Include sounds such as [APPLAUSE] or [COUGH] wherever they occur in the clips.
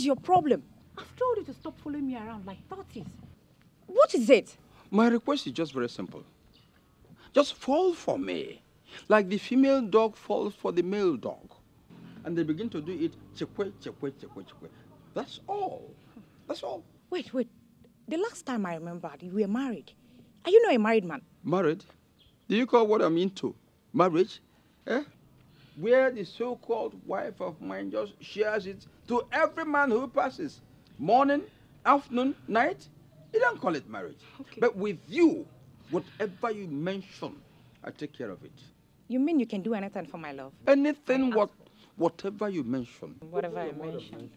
is your problem? I've told you to stop following me around like tortoise. What is it? My request is just very simple. Just fall for me, like the female dog falls for the male dog. And they begin to do it chekwe, chekwe, chekwe, chekwe. That's all. That's all. Wait, wait. The last time I remembered, you were married. Are you not a married man? Married? Do you call what I'm into marriage? Eh? where the so called wife of mine just shares it to every man who passes morning, afternoon, night. You don't call it marriage. Okay. But with you, whatever you mention, I take care of it. You mean you can do anything for my love? Anything, what, whatever you mention. Whatever, I mention.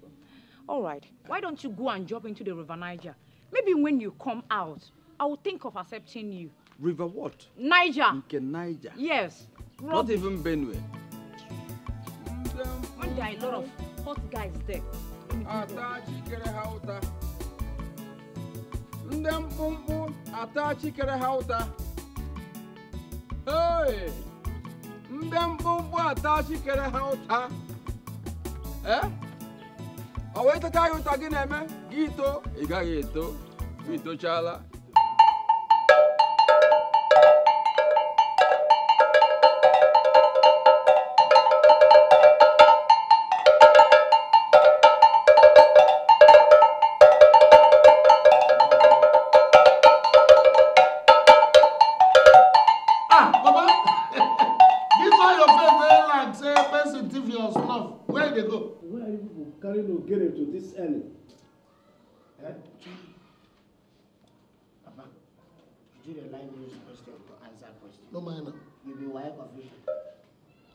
All right. Why don't you go and jump into the River Niger? Maybe when you come out, I will think of accepting you. River what? Niger. Niger. Yes. Not, Not even Benue. When there are a lot of hot guys there. Atachikere hauta. Ndị mkpụmkpụ atachikere hauta. Hey! Ndị mkpụmkpụ atachikere hauta. Eh? Ọ wee tacha gị ụta gị na-eme gị ito, ẹni eh? no man you be wire confusion.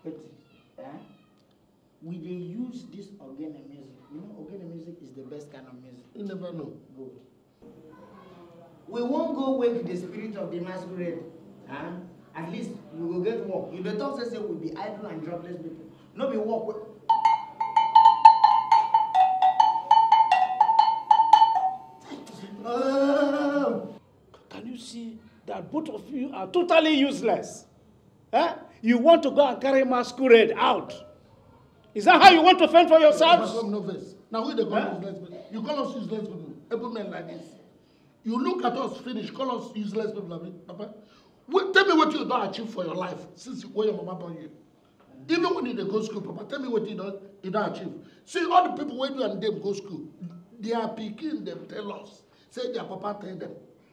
eti eh? we dey use this ogene music you know ogene music is the best kind of music. you never know. good. we wan go wake the spirit of the masquerade. Huh? at least we go get work you dey talk say say we be idle and jobless people no be work wey. Oh. Can you see that both of you are totally useless? Eh? You want to go and carry masquerade out. Is that how you want to fend for yourselves? Now, who the eh? useless people? You call us useless people, able men like this. You look at us, finish, call us useless people, I Papa. Well, tell me what you don't achieve for your life since where your mama born you. Even when you go school, Papa, tell me what you don't, you don't achieve. See, all the people when you and them go school, they are picking them, tell us say their papa tell them.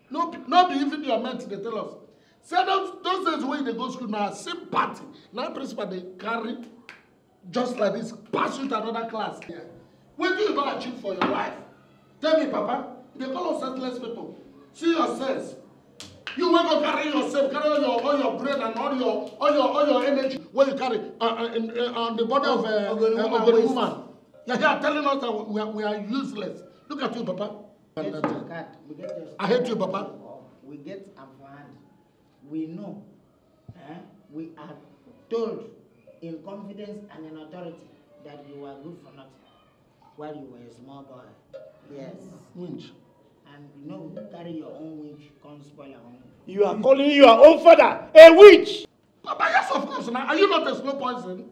No, not be even your mate They tell us. Say those, those days when they dey go school now, same party. Now principal they carry just like this pass you to another class. Yeah. do you don achieve for your life? Tell me, Papa. They call us senseless people. See yourselves. You wey go carry yourself, carry all your all your brain and all your all your all your energy where you carry uh, uh, uh, on the body of uh, uh, of a woman. You are telling us that we are, we are useless. Look at you, Papa. I hate you, Papa. Oh, we get upper hand. We know. Eh? We are told in confidence and in authority that you are good for nothing while you were a small boy. Yes. Winch. And you know, you carry your own witch, come spoil your own. You are calling your own father a witch! Papa, yes, of course. Now, are you not a slow poison?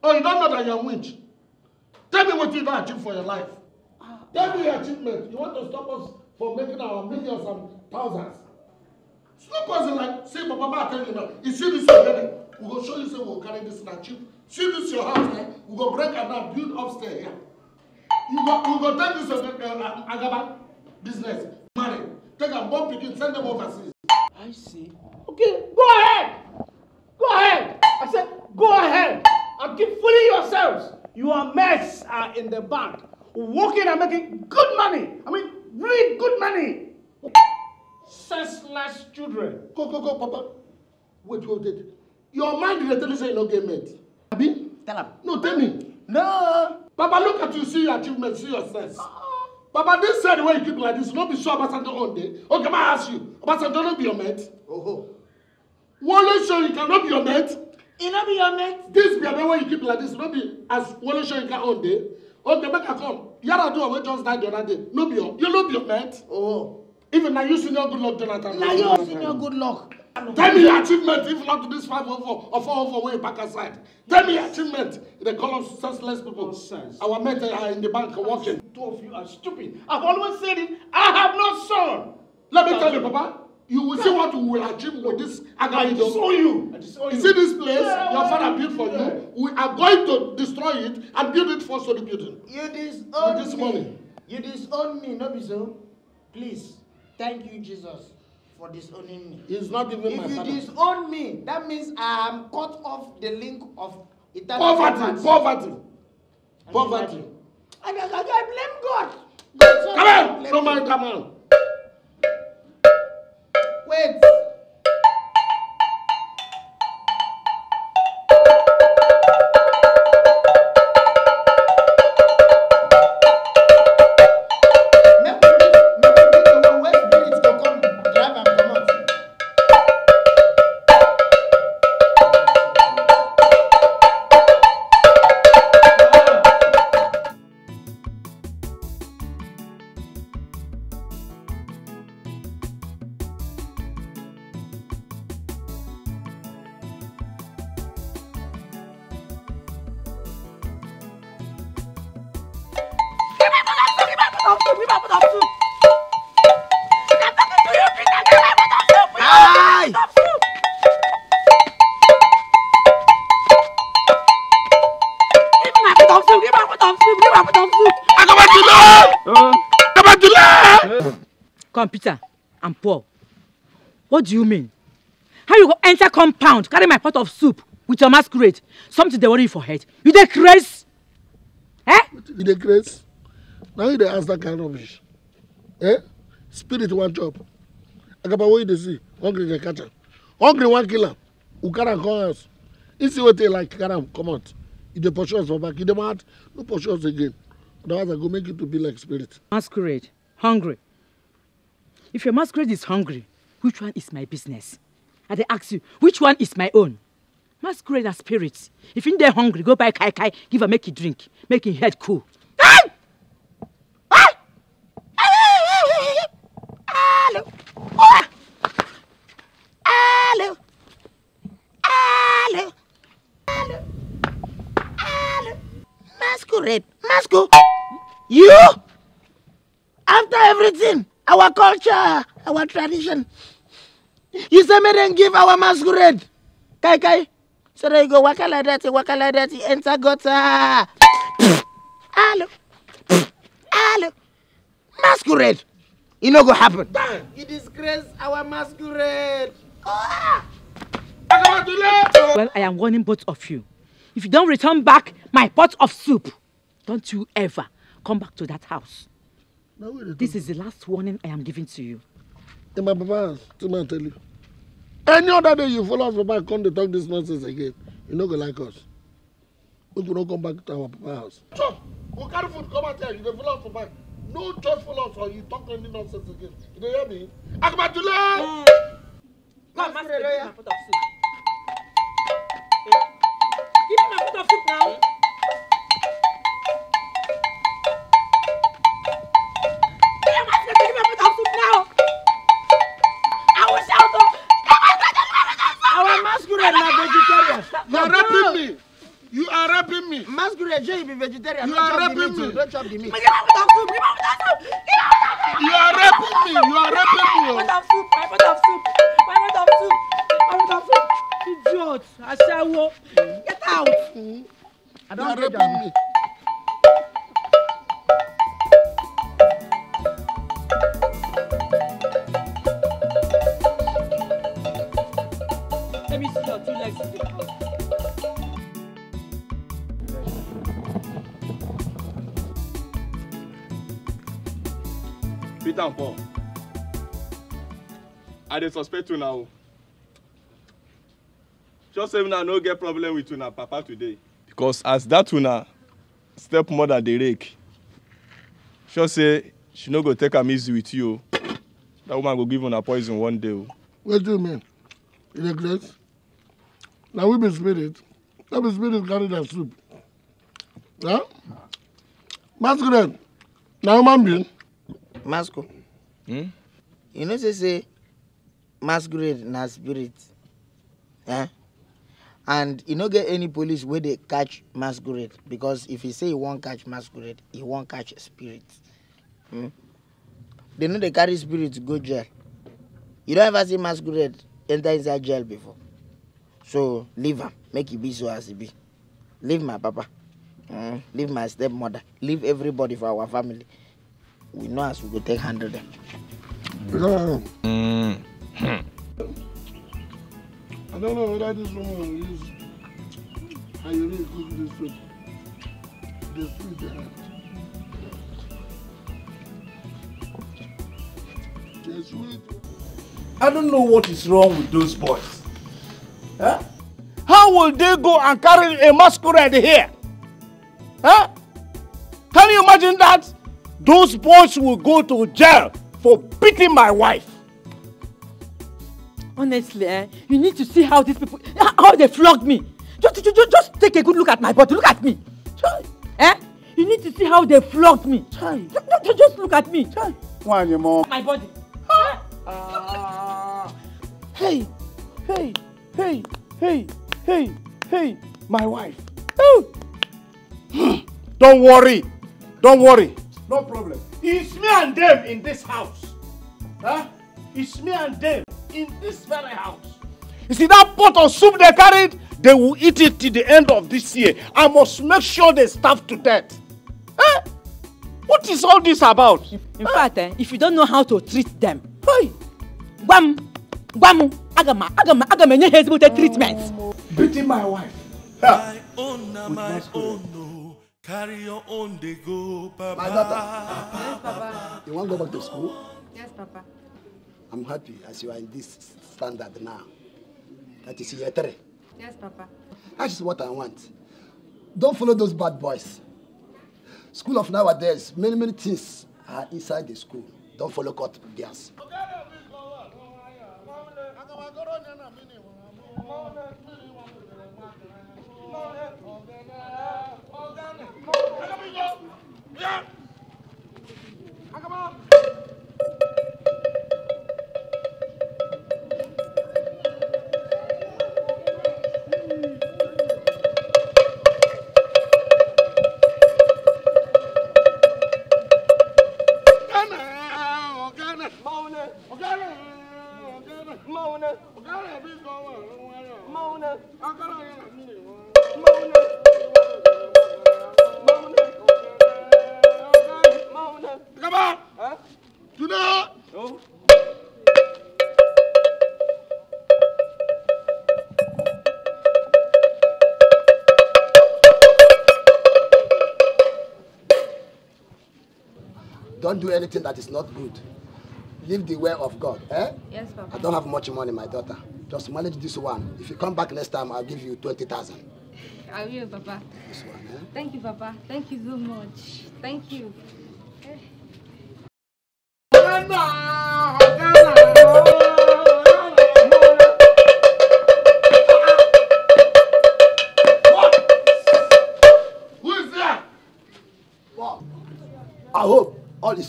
Oh, you don't know that you're a witch? Tell me what you don't achieve for your life. Tell me your achievement, you want to stop us from making our millions and thousands. Stop us like, see, Papa, Ma, tell you now, you see this already. We go show you, say, we'll carry this and achieve. See this your house eh? we go break and now build upstairs here. Yeah? You go, we go take this uh, uh, uh Agaba business, marry, take a bomb picking, send them overseas. I see. Okay, go ahead. Go ahead. I said, go ahead. And keep fooling yourselves. Your mess are in the bank working and making good money. I mean, really good money. Senseless children. Go, go, go, Papa. Wait, wait, wait. Your mind is telling you you're not getting met. Abi? Tell him. No, tell me. No. Papa, look at you, see your achievements, see your sense. Papa, this said why you keep like this, Not be sure Obasanjo one day. Okay, may I ask you, Obasanjo no be your mate? Oh. ho. Wole Soyinka no be your mate? He no be your mate? This be your way you keep like this, Not be as you Soyinka one day okay make i come Yara do away just die the other day no be your you no be your mate. Oh. even now you senior good luck jonathan. na you senior good luck. tell me your achievement if not this five oh or four oh four wey you aside tell me your achievement The call us senseless people Nonsense. our men are uh, in the bank working. two of you are stupid I've always said it i have no son. let me tell you papa You will see what we will achieve with this agami dome. You. you. You see this place yeah, your father built for you? We are going to destroy it and build it for solid building. You disown with this me. money. You disown me, no be so. Please, thank you, Jesus, for disowning me. He's not even if my father. If you disown me, that means I am cut off the link of eternal poverty. Poverty. Poverty. And poverty. I, I, I blame God. Come on, no man, come on. do you mean? How you go enter compound, carry my pot of soup with your masquerade? Something they worry for head. You dey craze? Eh? You dey craze? Now you dey ask that kind of rubbish. Eh? Spirit one job. Agaba what you dey see, hungry dey catch am. Hungry one killer. am. You carry am come house. You see wetin like carry come out. You dey push us for back. You dey mad, no push us again. Otherwise I go make you to be like spirit. Masquerade, hungry. If your masquerade is hungry, Which one is my business? I they ask you, which one is my own? Masquerade as spirits. If in there hungry, go buy kai kai, give her make drink, make head cool. Hello. Hello. Hello. Hello. Hello. Masquerade. Masco. You? After everything, our culture, our tradition, You say make then give our masquerade. Kai kai. So there you go waka like that, waka like that, enter gutter. Hello. Hello. Masquerade. It no go happen. Damn, you disgrace our masquerade. Oh. Well, I am warning both of you. If you don't return back my pot of soup, don't you ever come back to that house. this is the last warning I am giving to you. In my papa still man tell you any other day you follow us for back come dey talk this nonsense again you no go like us make we no come back to our papa house. chop go carry food come out here you dey follow us for back no just follow us or you talk any nonsense again you dey hear me. akabatule. Hmm. ma ma se de give me my pot of soup. give me my pot of soup now. Sure, you be vegetarian. You are raping oh. me. Don't chop the meat. You are raping me! You are raping me! Give up the soup. You are raping me. You are raping me. My pot of soup. My pot of soup. My pot of soup. Get out. I don't you are raping me. Oh. Let me see your two legs in the house. beat am for i dey suspect una o sure say una no get problem with una papa today because as dat una stepmother dey rake sure say she no go take am easy with you That woman go give una poison one day What do you mean In dey glass? Now we be spirit That be spirit carry that soup. Yeah? masquerade Now human being masco hmm? you know say say masquerade na spirit eh and you e don't get any police where they catch masquerade because if you say you won't catch masquerade you won't catch spirit hmm dem no dey carry spirit go jail you don't ever see masquerade enter inside jail before so leave am make e be so as e be leave my papa hmm? leave my stepmother leave everybody for our family we know as we go take hundred. them. Mm. I don't know whether this woman is really cook this food. food sweet. I don't know what is wrong with those boys. Huh? How will they go and carry a masquerade here? Huh? Can you imagine that? Those boys will go to jail for beating my wife. Honestly, eh, you need to see how these people, how they flogged me. Just, just, just take a good look at my body. Look at me. Eh? You need to see how they flogged me. Just, just, just look at me. Why, One mom? My body. Uh... Hey, hey, hey, hey, hey, hey, my wife. Oh. Don't worry. Don't worry. No problem. It's me and them in this house. Huh? It's me and them in this very house. You see that pot of soup they carried? They will eat it till the end of this year. I must make sure they starve to death. Eh? What is all this about? In, eh? fact, eh, if you don't know how to treat them, hey. guam, gwam, agama, agama, agama, enye hezbo treatment. Beating my wife. Yeah. My own, my own. Oh. Carry your own day go, Papa. My daughter. Yes, Papa. You want to go back to school? Yes, Papa. I'm happy as you are in this standard now. That is year three. Yes, Papa. That is what I want. Don't follow those bad boys. School of nowadays, many, many things are inside the school. Don't follow cut theirs. Okay. Yeah. do anything that is not good. Live the way of God. Eh? Yes, Papa. I don't have much money, my daughter. Just manage this one. If you come back next time, I'll give you 20,000. I will, Papa. This one, eh? Thank you, Papa. Thank you so much. Thank you.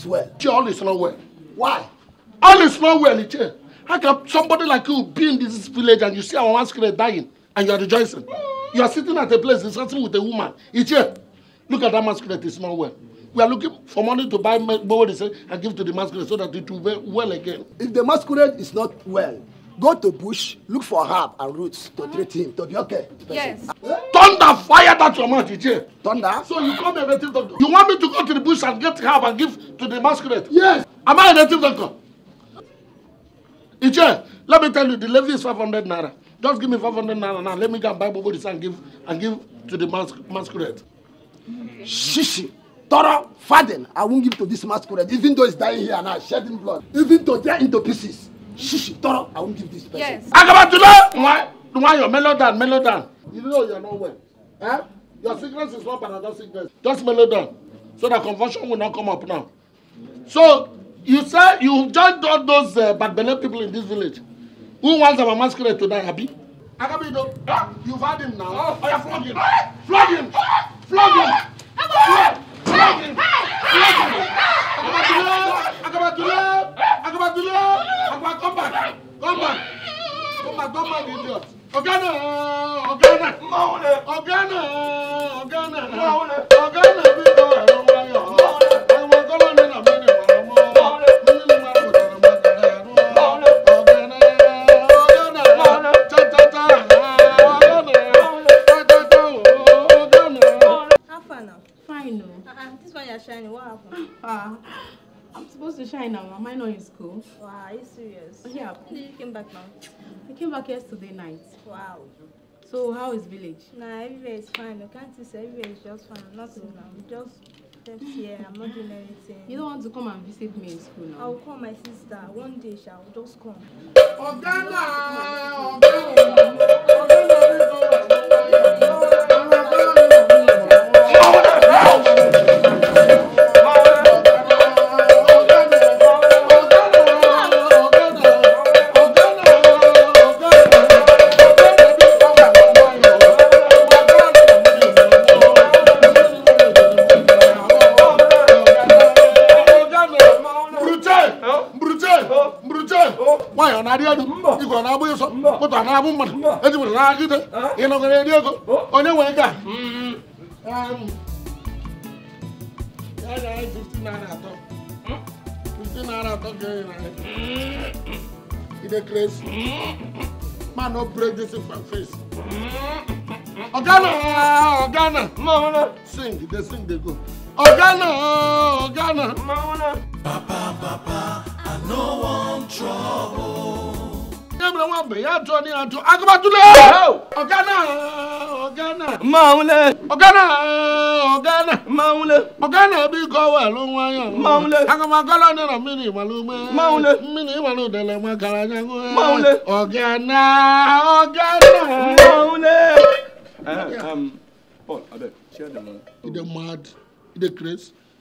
well. Jay, all is not well. Why? All is not well, Jay. How can somebody like you be in this village and you see our one skinhead dying and you are rejoicing? You are sitting at a place discussing with a woman. Ije, look at that masquerade, it's not well. We are looking for money to buy borrow and give to the masquerade so that it will be well again. If the masquerade is not well, go to bush look for herb and roots to mm-hmm. treat him to be okay. yes. thunder fire that your mouth you hear. thunder. so you come a native doctor. you want me to go to the bush and get herb and give to the masquerade. yes. am I a native doctor. Iche, let me tell you, the levy is 500 naira. Just give me 500 naira now. Let me go and buy Bobo this and give and give to the mas masquerade. Okay. Shishi, thorough, faden. I won't give to this masquerade, even though he's dying here and now, shedding blood. Even though they're into pieces. Shush! toro i won't give this person. yes. do. agabatula nwa nwa your mellow down mellow down. you know you're not well eh? your sickness is not another sickness just mellow down so that confusion will not come up now so you say you joined all those uh, bad belle people in this village who wants our masquerade to die abi. agabido eh? Ah! You've had him now oh, oya oh, flog him eh? flog him eh? flog him flog him flog him. Flog him. now. Am I not in school? Wow, are you serious? Oh, yeah. When [LAUGHS] did you came back now? I came back yesterday night. Wow. So how is village? Nah, everywhere is fine. I can't say everywhere is just fine. I'm not in now. Just left here. I'm not doing anything. You don't want to come and visit me in school now? I'll call my sister. One day Shall just come. Ogana! Ogana! radio do iko na abu so ko to na abu mo hmm? e na ki de ino ko radio ko ga mm um man no break this face ọ̀gá náà ọ̀gá náà sing dey sing dey go ọ̀gá náà ọ̀gá náà. papa papa i no wan trouble. kébìrì wọn bèyí àjọ ní àjọ agbátúlẹ̀ ọ̀gá náà ọ̀gá ogana ogana ń lé. ọ̀gá náà ọ̀gá náà. máa ń lé. ọ̀gá náà bí gọ́wà ló mini wáyà. máa ń lé. akọ̀mọ̀ akọ́lọ́ nínú mi ní ìmọ̀lú mẹ́. máa ń lé. mi Paul abeg share the mad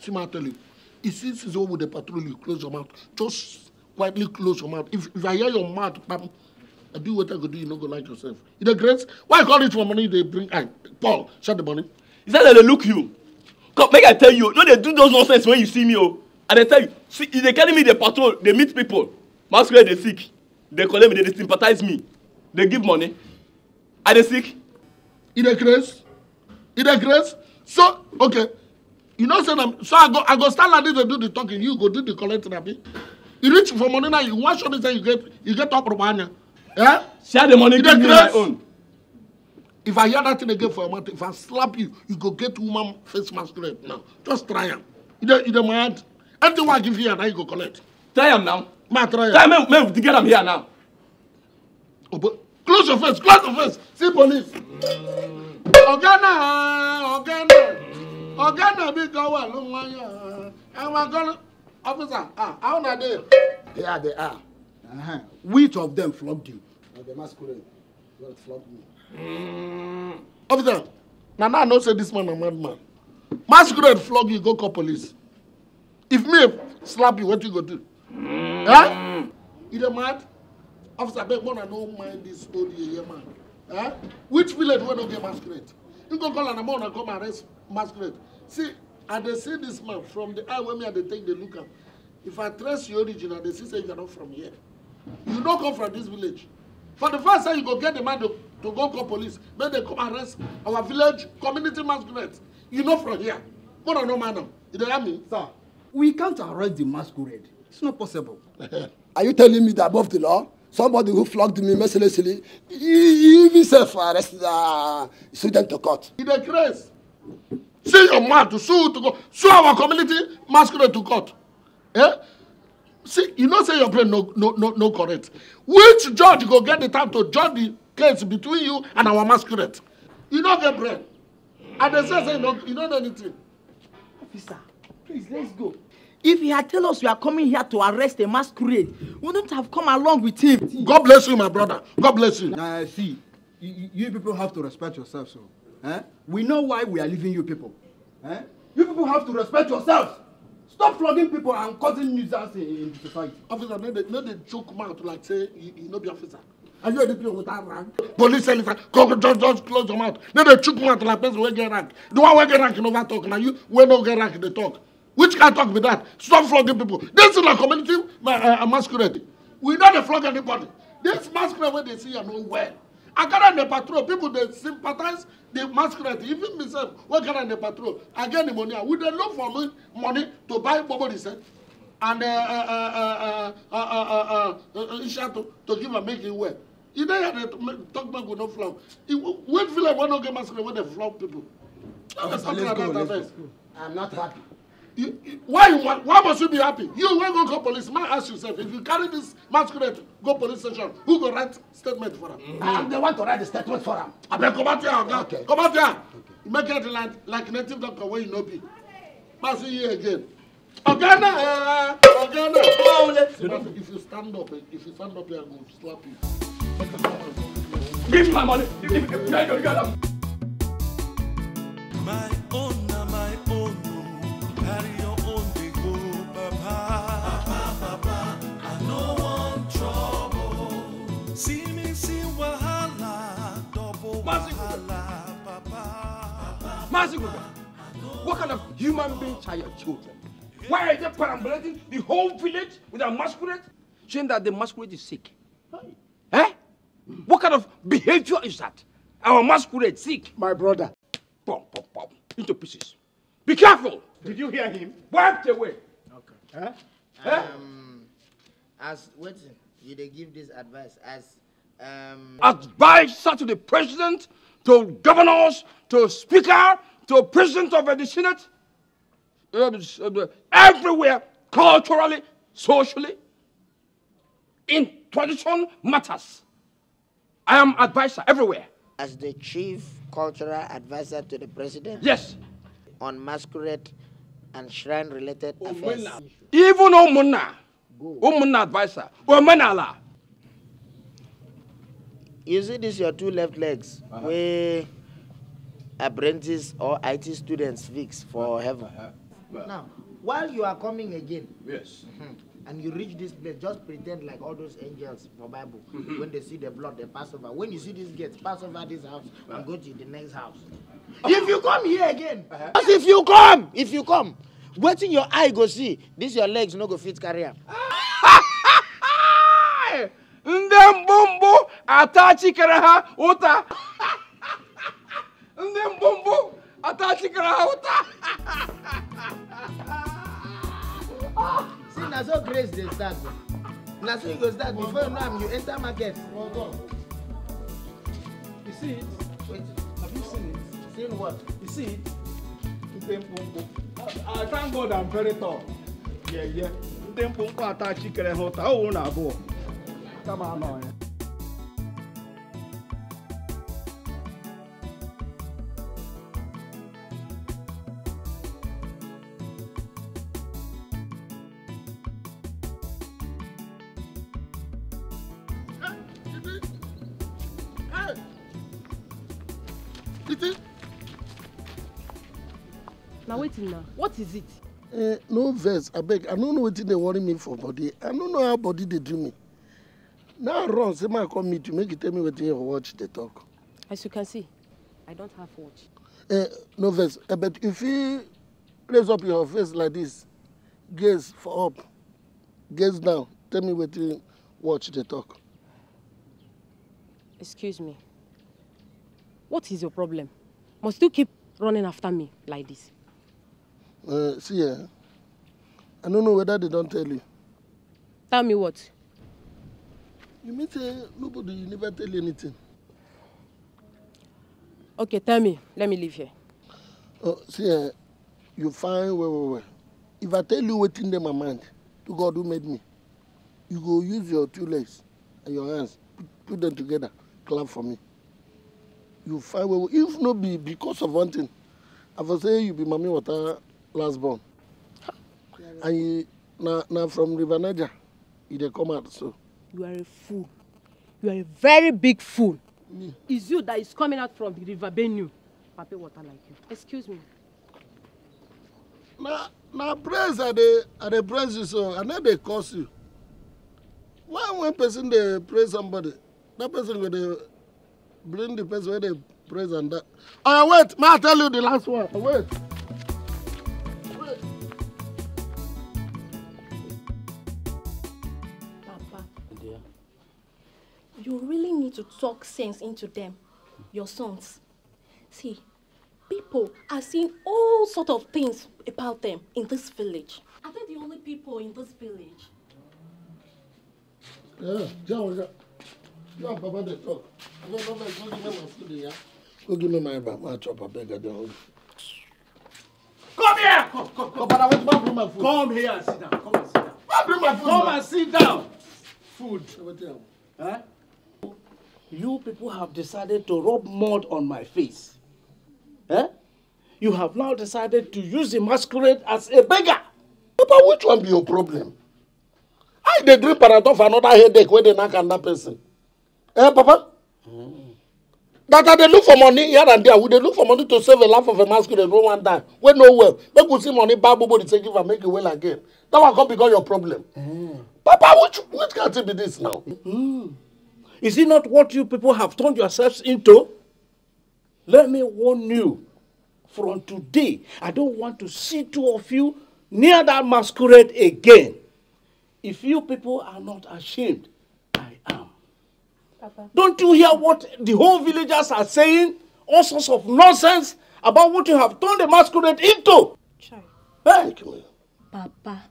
see If It's instance where with the patrol, you close your mouth. Just quietly close your mouth. If, if I hear your mouth, pam, I do what I could do, you not go like yourself. In the grace, why you call it for money? They bring, I, Paul, shut the money. Is that how they look you. Come, make I tell you, no, they do those nonsense when you see me, oh. And they tell you, see, if they carry me, they patrol, they meet people. Masquerade, they sick. They call me, they, sympathize me. They give money. Are they sick? In the grace? In the grace? So, okay you know say na so i go i go stand like this dey do the talking you go do the collecting abi you reach for money now you want show me say you get you get up from anya eh share the money give me my own if i hear that thing again for a month, if i slap you you go get woman face masquerade now just try him. you don't. you don't mind. anything wey i give you na you go collect. try him now. ma try him. try make make we get am here now. obo oh, close your face close your face see police. oga naa oga naa ọ̀gá náà bí gan wà ló wọ́n yàn àwọn gan officer ah how na dey. they are they are uh -huh. which of them flogged you. na the masquerade wey flog me. Mm. officer na now i know say this man na madman masquerade flog you go call police if me slap you wetin you go do. Mm. Eh? you dey mad officer abeg una no mind dis old yeye man eh? which village wey no get masquerade you go call am na more una come arrest masquerade see i they see this man from the eye when me i dey take the look am if i trace your origin i they see say you are not from here you no come from this village for the first time you go get the man to, to go call police make they come arrest our village community masquerade you know from here more than normal now you don't hear me. sir we can't arrest the masquerade it's not possible. [LAUGHS] are you telling me that above the law somebody who flogged me mercilessly he himself arrest the uh, student to court. he dey craze See your man to sue to go sue our community masquerade to court. Eh? See, you know say your brain no no no correct. Which judge go get the time to judge the case between you and our masquerade? You no get brain. And they say say you no you no know anything. Officer, please let's go. If he had tell us you are coming here to arrest a masquerade, we wouldn't have come along with him. God bless you, my brother. God bless you. Now, nah, see, you, you people have to respect yourself, So. Eh? We know why we are leaving you people. Eh? You people have to respect yourselves. Stop flogging people and causing nuisance in, in society. Officer, no dey no dey chook mouth like say you, you no be officer. Are you a DPO without rank? Police officer, just just close your mouth. No dey chook mouth like person wey get rank. The one wey get rank never talk Now you wey no get rank They talk. Which can talk with that? Stop flogging people. This is na community uh, uh, masquerade. We no dey flog anybody. This masquerade wey dey see you no well. I got on the patrol. People they sympathize, they masquerade. Even myself, we got on the patrol. I get the money. We they look for me money to buy Bobo said. And uh, uh, uh, uh, uh, uh, uh, to, give and make it well. You know how they talk back with no flow. Wait feel like one don't get masquerade when they flow people. let's go. I'm not happy why you want, why must you be happy? You when go call police, man ask yourself, if you carry this masquerade, go police station, who go write statement for him? Mm -hmm. And they want to write the statement for him. I Abeg come out here, oga. Okay. Come out here. Okay. Make it like, like native doctor wey you no be. Pass you here again. Oga na, oga If you stand up, if you stand up here, I go slap you. Give me my Give me my money. My own. Mazinger, what kind of human beings are your children? Why are they perambulating the whole village with a masquerade? Saying that the masquerade is sick. Right. Eh? Mm. What kind of behavior is that? Our masquerade sick. My brother. Pom, pom, pom. Into pieces. Be careful. Did you hear him? Wiped away. Okay. Huh? Eh? Um, eh? as, what, did they give this advice as, um... Advisor to the president to governors, to speaker, to president of the Senate, um, um, everywhere, culturally, socially, in tradition matters. I am advisor everywhere. As the chief cultural advisor to the president? Yes. On masquerade and shrine related oh, affairs? Even Omuna, Omuna advisor, Omenala. you see this your two left legs uh -huh. wey apprentice or IT students fix for uh-huh. heaven. Uh -huh. Now, while you are coming again, yes, mm-hmm. and you reach this place, just pretend like all those angels for Bible. Mm-hmm. when they see the blood, they pass over. When you see this gate, pass over this house and uh-huh. go to the next house. Uh-huh. if you come here again, uh -huh. if you come, if you come, in your eye go see, this your legs no go fit carry am. Ah! ndị mgbụmgbụ atachikere ha ụta ndị mgbụmgbụ atachikere ha ụta see na so grace dey start oh. na so you go start before you know am you enter market well done you see it wait have you seen it seen what you see it ndị mkpụmkpụ i thank god i'm very tall yeah yeah na abụọ Now na wetin na what is it. Uh, no I beg. i don't know what dey worry me for body i don't know how body they do me. Now run, say my come meet you, make you tell me what you watch the talk. As you can see, I don't have watch. Uh, no verse, uh, but if you raise up your face like this, gaze for up, gaze down, tell me what you watch the talk. Excuse me. What is your problem? Must you keep running after me like this? Uh, see, eh? I don't know whether they don't tell you. Tell me what? You mean say nobody you never tell anything? Okay, tell me. Let me leave here. Oh, see, uh, you fine, well, well, well. If I tell you what's in my mind, to God who made me, you go use your two legs and your hands, put them together, clap for me. You fine, well, well. If not be because of one thing, I for say you be Mami Water last born. And you, na, na from River Niger, you dey come out so. You are a fool. You are a very big fool. Me. It's you that is coming out from the river Benue. Pape water like you. Excuse me. Na na praise I dey I dey praise you so I no dey curse you. Why when person dey praise somebody, that person go dey bring the person wey dey praise and that. Oya oh, wait, may I tell you the last one? Wait. you really need to talk sense into them, your sons. See, people are seeing all sort of things about them in this village. Are they the only people in this village? Yeah, John, John, Papa, they talk. Go give me my food, Here, Go give me my bag, my chop, I beg you. Come here! Come, come, come. But I want to bring my food. Come here and sit down. Come and sit down. Come and sit down. Come and sit down. Food. Huh? you people have decided to rub mud on my face. Eh? You have now decided to use the masquerade as a beggar. Papa, which one be your problem? I the drink paraton for another headache they knock on that person. Eh, Papa? Mm. That they look for money here and there. We they look for money to save a life of a masquerade wey wan die. We no well. Make we see money buy bobo take give and make it well again. That one come become your problem. Mm. Papa, which which kind thing be this now? Mm. Is it not what you people have turned yourselves into? Let me warn you from today, I don't want to see two of you near that masquerade again. If you people are not ashamed, I am. Papa. Don't you hear what the whole villagers are saying? All sorts of nonsense about what you have turned the masquerade into. Child. Thank you. Papa.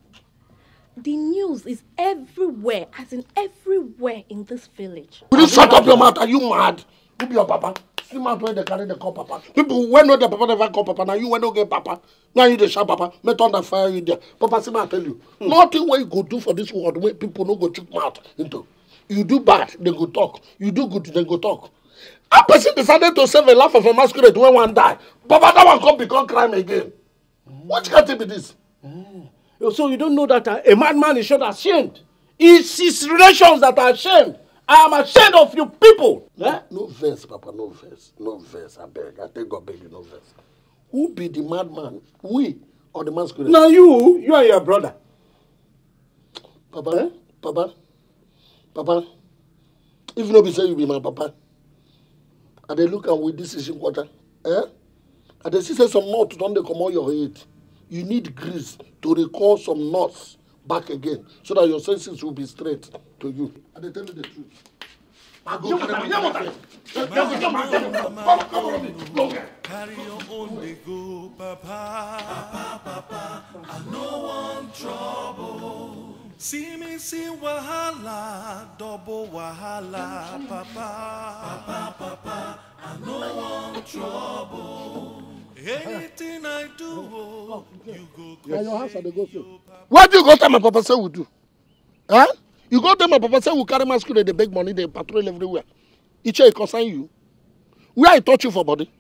The news is everywhere, as in everywhere in this village. Will you shut up your mouth? Are you mad? Who be your papa? See man when they carry the call papa. People when know the papa never call papa. Now you when no get papa. Now you the sharp papa. Me turn the fire you there. Papa see man tell you. Hmm. Nothing what you go do for this world where people no go chook mouth into. You do bad, they go talk. You do good, they go talk. A person decided to save a life of a masquerade when one die. Papa that one come become crime again. Mm. Which can't be this? Mm. So you don't know that a, uh, a madman is not ashamed. It's his relations that are ashamed. I am ashamed of you people. Eh? No verse, Papa, no verse. No verse, I beg. I thank God beg you, no verse. Who be the madman? We or the masculine? Now you, you and your brother. Papa, eh? Papa, Papa, if nobody say you be my papa, I dey look am with this issue quarter. Eh? I dey see say some mouth don dey comot your head you need grease to recall some knots back again so that your senses will be straight to you. I dey tell you the truth. I go carry my water. Carry your own dey go, Papa. Papa, I no want trouble. See me see wahala, double wahala, Papa. Papa, Papa, I no want trouble. Anything I do, oh, you go Yeah, your hands go through. What do you go tell my papa say we do? Huh? You go tell my papa say we carry masquerade, they beg money, they patrol everywhere. Each year concern you. Where I touch you for body?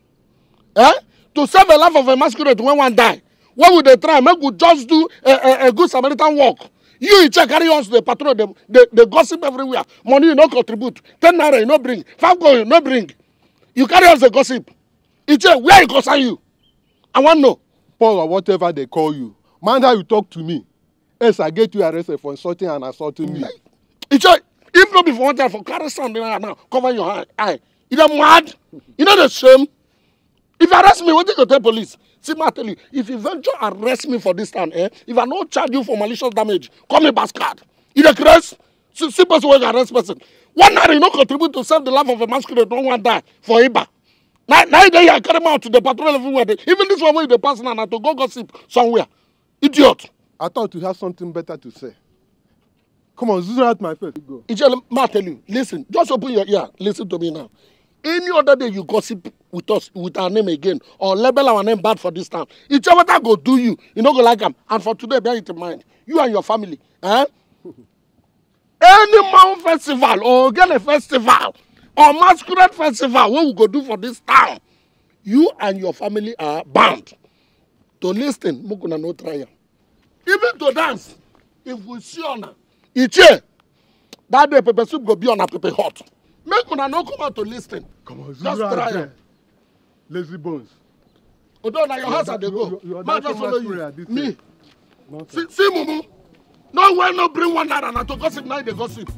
Huh? To save the life of a masquerade when one die. What would they try? Make we just do a, a, a good Samaritan walk. You each carry on to the patrol, they, they, they gossip everywhere. Money you no contribute. Ten naira you no bring. Five gold you no bring. You carry on the gossip. Each where it concern you? I want know. Paul or whatever they call you. mind how you talk to me. Yes, I get you arrested for insulting and assaulting me. It's a, if not before one time for carry something right now, cover your eye. eye. You know mad? You know the shame? If you arrest me, what do you tell police? See, I tell you, if you venture arrest me for this time, eh? If I not charge you for malicious damage, call me bastard. You the grace? See, person who arrest person. One night you not contribute to save the life of a masquerade, don't want die for Iba. Now, now they are carrying out to the patrol everywhere. They, even this one where they pass now, now to go gossip somewhere. Idiot. I thought you had something better to say. Come on, this is not my face. Go. Ijele, ma tell you, listen, just open your ear, listen to me now. Any other day you gossip with us, with our name again, or label our name bad for this town, Ijele, what go do you, you don't go like them. And for today, bear it in mind, you and your family, eh? [LAUGHS] Any mountain festival or get a festival, or masquerade festival wey we go do for dis town you and your family are bound to lis ten make una no try am even to dance if we see una ichie that day pepper soup go be una pepper hot make una no come out to lis ten just try am. lazy bones. odo na your house i dey go ma just follow you me see mumu no wey no bring one naira na to gossip na you dey gossip.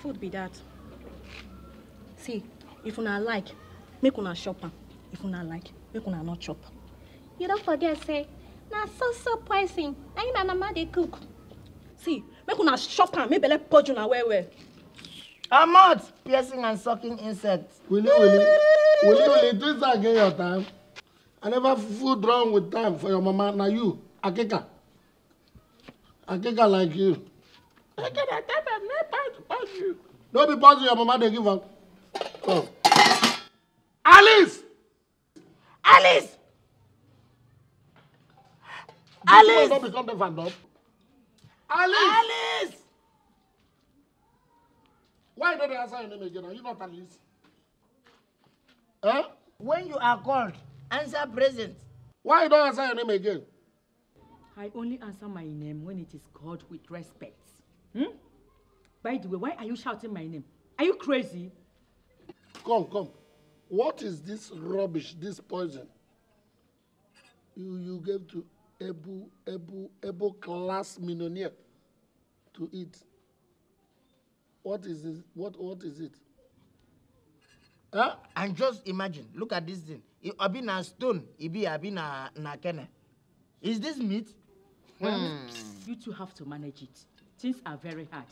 food be that. see if una like make una shop. am if una like make una not chop you don't forget say na so so poison na im mama dey cook see make una shop and make belle purge una well well. Ahmad, piercing and sucking insects. Willy, Willy, Willy, Willy, do this again your time. I never food wrong with time for your mama. Now you, Akeka. Akeka like you. Make No be pass your mama dey give am. Oh. Alice! Alice! Alice! Alice! Alice! Why don't they answer your name again? Are you not Alice? Eh? When you are called, answer present. Why you don't answer your name again? I only answer my name when it is called with respect. Hmm? By the way, why are you shouting my name? Are you crazy? Come, come. What is this rubbish, this poison? You, you gave to Ebu, Ebu, Ebu class millionaire to eat. What is this? What, what is it? Huh? And just imagine, look at this thing. It been a stone, it be, it be na, na kene. Is this meat? Hmm. You two have to manage it. Things are very hard.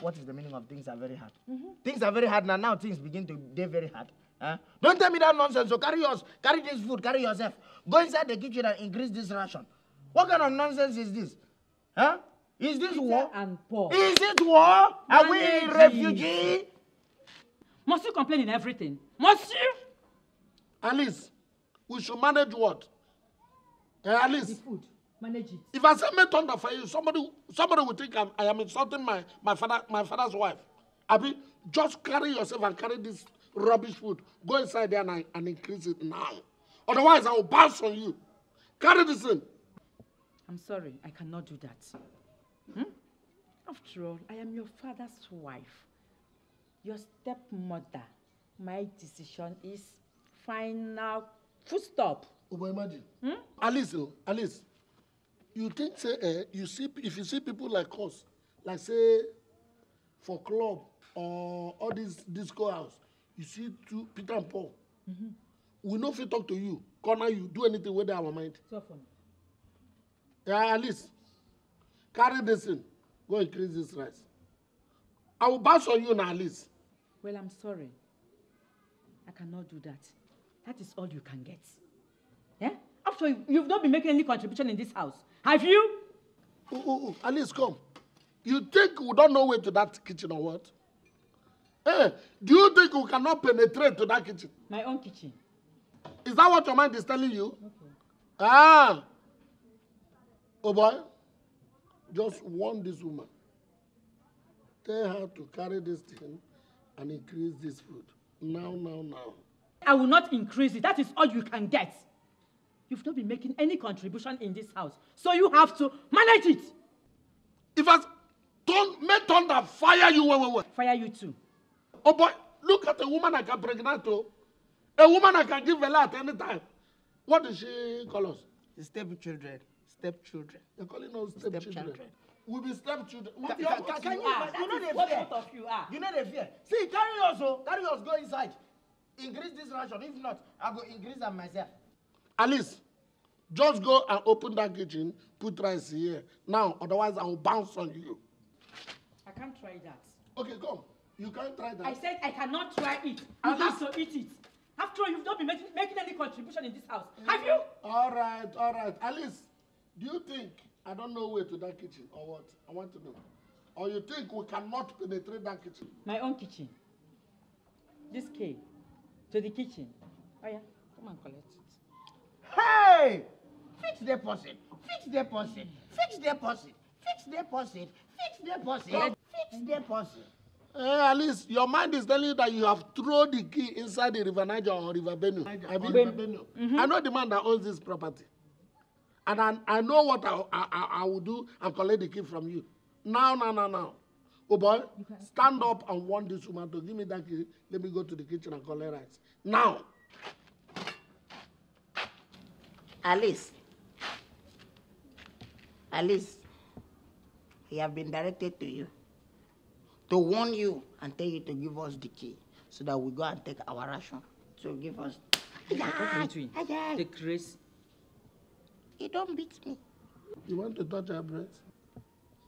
What is the meaning of things are very hard? Mm -hmm. Things are very hard now. Now things begin to get very hard. Huh? Eh? Don't tell me that nonsense. So carry yours. Carry this food. Carry yourself. Go inside the kitchen and increase this ration. What kind of nonsense is this? Huh? Eh? Is this war? And poor. Is it war? Managing. Are we a refugee? Must you complain in everything? Must you? Alice, we should manage what? Uh, Alice. The food manage it. If I say make thunder for you, somebody somebody will think I'm, I am insulting my my father my father's wife. Abi, just carry yourself and carry this rubbish food. Go inside there and, and increase it now. Otherwise, I will bounce on you. Carry this in. I'm sorry, I cannot do that. Hmm? After all, I am your father's wife, your stepmother. My decision is final. Full stop. Obama, hmm? Alice, oh, Alice you think say eh you see if you see people like us like say for club or all this disco house you see two peter and paul mm -hmm. we no fit talk to you corner you do anything wey dey our mind yeah, at least carry this thing go increase this rice i will bounce on you na at least. well i'm sorry i cannot do that that is all you can get. Eh? after all, you've not been making any contribution in this house Have you? Ooh, ooh, ooh. Alice, come. You think we don't know way to that kitchen or what? Hey, eh, do you think we cannot penetrate to that kitchen? My own kitchen. Is that what your mind is telling you? Okay. Ah. Oh boy. Just warn this woman. Tell her to carry this thing and increase this food. Now, now, now. I will not increase it. That is all you can get. You've not been making any contribution in this house, so you have to manage it. If I don't make thunder fire you, wait, wait, wait. Fire you too. Oh boy, look at a woman I can pregnant to. Oh. A woman I can give a lot any time. What does she call us? Stepchildren. Stepchildren. They're calling us stepchildren. stepchildren. We'll be stepchildren. What can, can, can you, are? You know they fear. What of you are? You know they fear. See, carry us, oh, carry us, go inside. Increase this ration. If not, I'll go increase them myself. Alice, just go and open that kitchen, put rice here. Now, otherwise I will bounce on you. I can't try that. Okay, come. You can't try that. I said I cannot try it. I have to eat it. After all, you've not been making, making any contribution in this house. Yeah. Mm. Have you? All right, all right. Alice, do you think I don't know where to that kitchen or what? I want to know. Or you think we cannot penetrate that kitchen? My own kitchen. This key to the kitchen. Oh yeah, come and collect. Hey! fix deposit, fix deposit, fix deposit, fix deposit, fix deposit, fix deposit. Hey, at least your mind is telling you that you have thrown the key inside the River Niger or River Benue. Niger, I, mean, River Benue. Mm-hmm. I know the man that owns this property. And I, I know what I, I, I will do and collect the key from you. Now, now, now, now. Oh boy, stand up and want this woman to give me that key. Let me go to the kitchen and collect rice. Now. Alice. Alice, we have been directed to you to warn you and tell you to give us the key so that we go and take our ration. So give us. Take grace. He don't beat me. You want to touch her breast?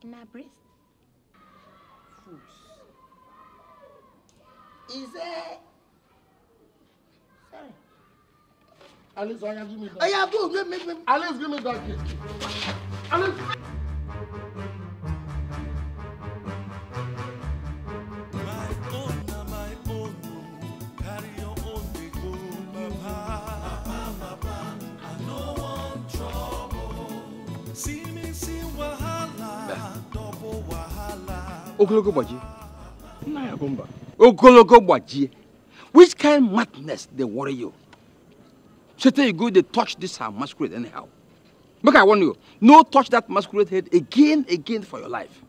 In her breast? Fools. Is it? Sorry. Alice, Oya, oh, give me that. Oya, oh, go, give me, give me. Alice, give me that gift. Alice. ogologo gbajie nna ya bụ mba ogologo gbajie which kind madness dey worry you Satan, you go, they touch this her masquerade anyhow. Make I warn you, no touch that masquerade head again, again for your life.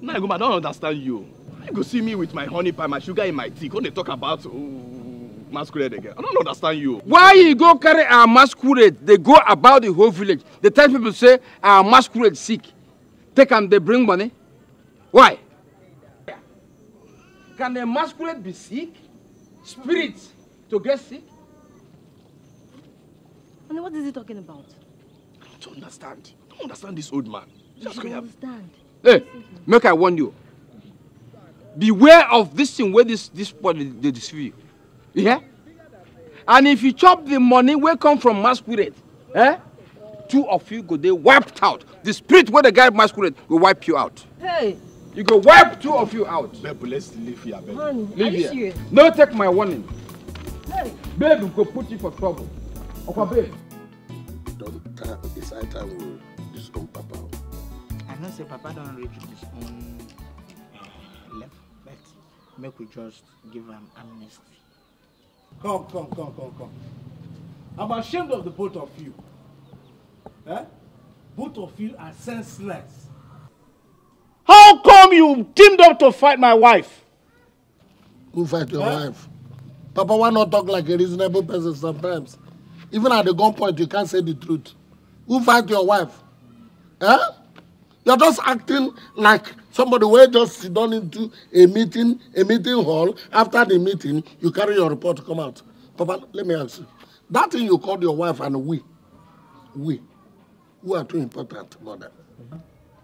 Now, nah, I don't understand you. You go see me with my honey pie, my sugar in my tea. When they talk about oh, masquerade again, I don't understand you. Why you go carry our masquerade? They go about the whole village. They tell people say our masquerade sick. Take them, they bring money. Why? Can a masquerade be sick? Spirit to get sick? And what is he talking about? I don't understand. I don't understand this old man. Just I don't understand. Hey, make I warn you. Beware of this thing where this this boy they, deceive you. Yeah? And if you chop the money where come from masquerade, eh? Two of you go they wiped out. The spirit where the guy masquerade will wipe you out. Hey! You go wipe two of you out. Babe, let's leave here, babe. Honey, leave are you here. serious? No, take my warning. Hey! Babe, go put you for trouble ọkọ babe. doctor it's high time we disown papa. i know say papa don't reach his own uh, level but make we just give him amnesty. come come come come come i'm ashamed of the both of you eh? both of you are senseless. how come you teamed up to fight my wife. who fight your eh? wife. Papa, why not talk like a reasonable person sometimes? Even at the gunpoint, you can't say the truth. Who fight your wife? Eh? You're just acting like somebody where just sit down into a meeting, a meeting hall. After the meeting, you carry your report, come out. Papa, let me ask you. That thing you called your wife and we, we, who are too important, mother?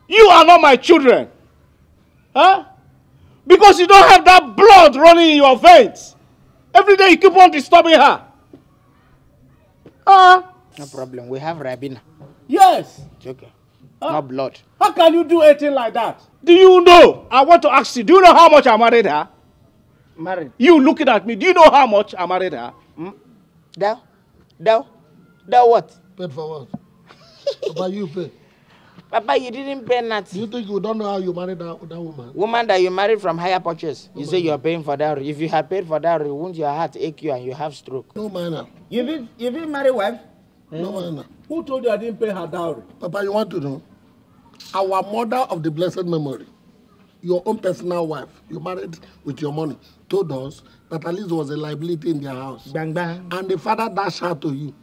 You are not my children. Huh? Because you don't have that blood running in your veins. Every day you keep on disturbing her. Ah. No problem. We have Rabina. Yes. It's okay. Ah. Uh, no blood. How can you do anything like that? Do you know? I want to ask you. Do you know how much I married her? Married. You looking at me. Do you know how much I married her? Hmm? Dow? Dow? Dow what? Paid for what? about you pay? Papa, you didn't pay nothing. You think you don't know how you married that, that woman? Woman that you married from higher purchase. You no say you're paying for dowry. If you have paid for dowry, won't your heart ache you and you have stroke? No manner. You been you been married wife? Hmm? No manner. Who told you I didn't pay her dowry? Papa, you want to know? Our mother of the blessed memory, your own personal wife, you married with your money, told us that at least was a liability in their house. Bang bang. And the father dashed her to you.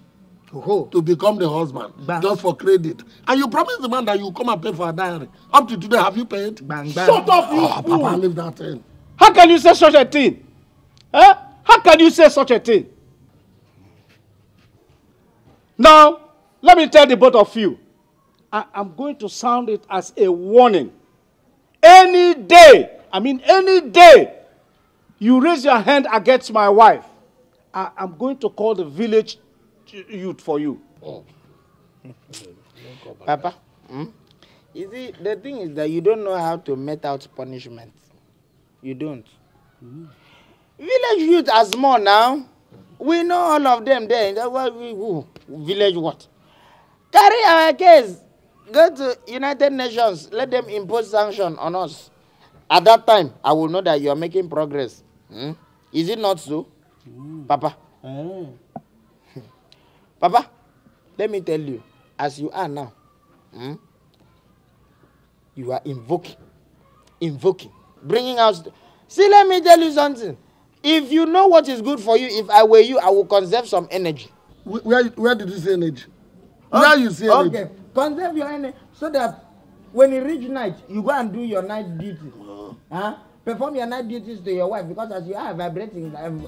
To To become the husband. Bang. Just for credit. And you promise the man that you come and pay for a diary. Up to today, have you paid? Bang, bang. Shut up, you oh, fool. Papa, leave that in. How can you say such a thing? Huh? How can you say such a thing? Now, let me tell the both of you. I am going to sound it as a warning. Any day, I mean any day, you raise your hand against my wife, I am going to call the village youth for you. Oh. Papa, hmm? you see, the thing is that you don't know how to met out punishment. You don't. Mm. Village youth are small now. We know all of them there. That's why we who? Village what? Carry our case. Go to United Nations. Let them impose sanction on us. At that time, I will know that you are making progress. Hmm? Is it not so? Mm. Papa. Mm. Papa, let me tell you, as you are now, hmm, you are invoking, invoking, bringing out. See, let me tell you something. If you know what is good for you, if I were you, I would conserve some energy. Where, where did you say energy? Where okay. you say energy? Okay, conserve your energy so that when you reach night, you go and do your night duty. Huh? Perform your night duties to your wife because as you are vibrating I'm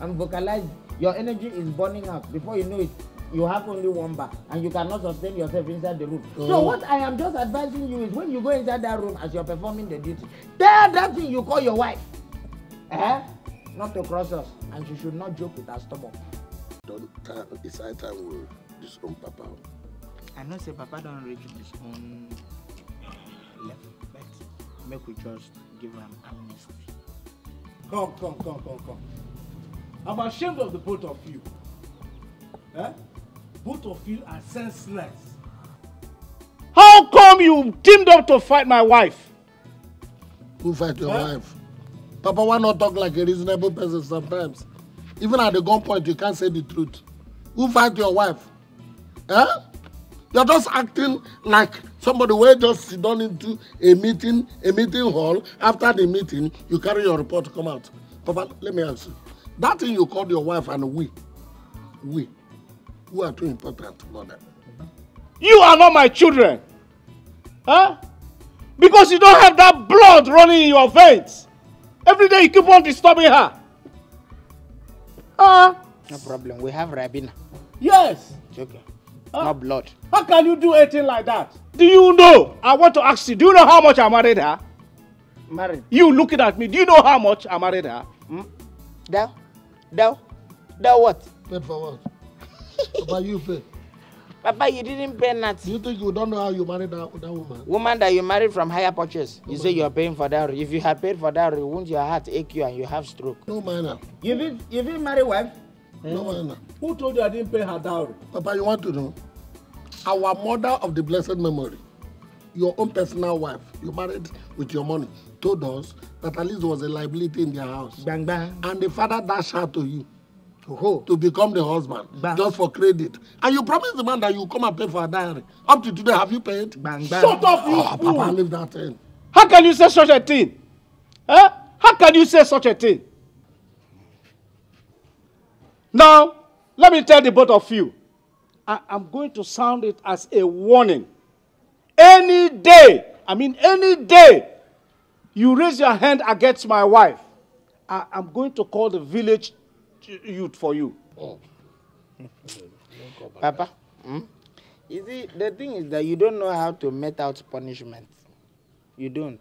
I'm vocalized. your energy is burning up before you know it you have only one bar and you cannot sustain yourself inside the room. Mm. So oh. what I am just advising you is when you go inside that room as you're performing the duty, tell that thing you call your wife. Eh? Not to cross us. And she should not joke with her stomach. Don't time time we disown Papa. I know say Papa don't reach his own level, but make we just give him amnesty. Come, come, come, come, come. I'm ashamed of the both of you. Eh? Both of you are senseless. How come you teamed up to fight my wife? Who fight your huh? wife? Papa, why not talk like a reasonable person sometimes? Even at the gunpoint, you can't say the truth. Who fight your wife? Huh? Eh? You're just acting like somebody who just sit down into a meeting, a meeting hall. After the meeting, you carry your report, come out. Papa, let me ask you. That thing you called your wife and we, we, who are too important mother. You are not my children. Huh? Because you don't have that blood running in your veins. Every day you keep on disturbing her. Huh? No problem. We have Rabina. Yes. It's okay. Huh? Not blood. How can you do anything like that? Do you know? I want to ask you. Do you know how much I married her? Married. You looking at me. Do you know how much I married her? Hmm? That? That? That what? Paid for what? About you fail. Papa, you didn't pay nothing. You think you don't know how you married that, that woman? Woman that you married from higher purchase. No you say you're paying for dowry. If you have paid for dowry, won't your heart ache you and you have stroke? No manner. You didn't, you didn't marry wife? Hmm? No manner. Who told you I didn't pay her dowry? Papa, you want to know? Our mother of the blessed memory, your own personal wife, you married with your money, told us that at least there was a liability in their house. Bang bang. And the father dashed her to you. to become the husband just for credit. And you promised the man that you come and pay for a diary. Up to today, have you paid? Bang, bang. Shut up, you oh, fool. Papa, leave that thing. How can you say such a thing? Huh? How can you say such a thing? Now, let me tell the both of you. I am going to sound it as a warning. Any day, I mean any day, you raise your hand against my wife, I am going to call the village youth for you. Oh. Papa, hmm? you see, the thing is that you don't know how to met out punishment. You don't.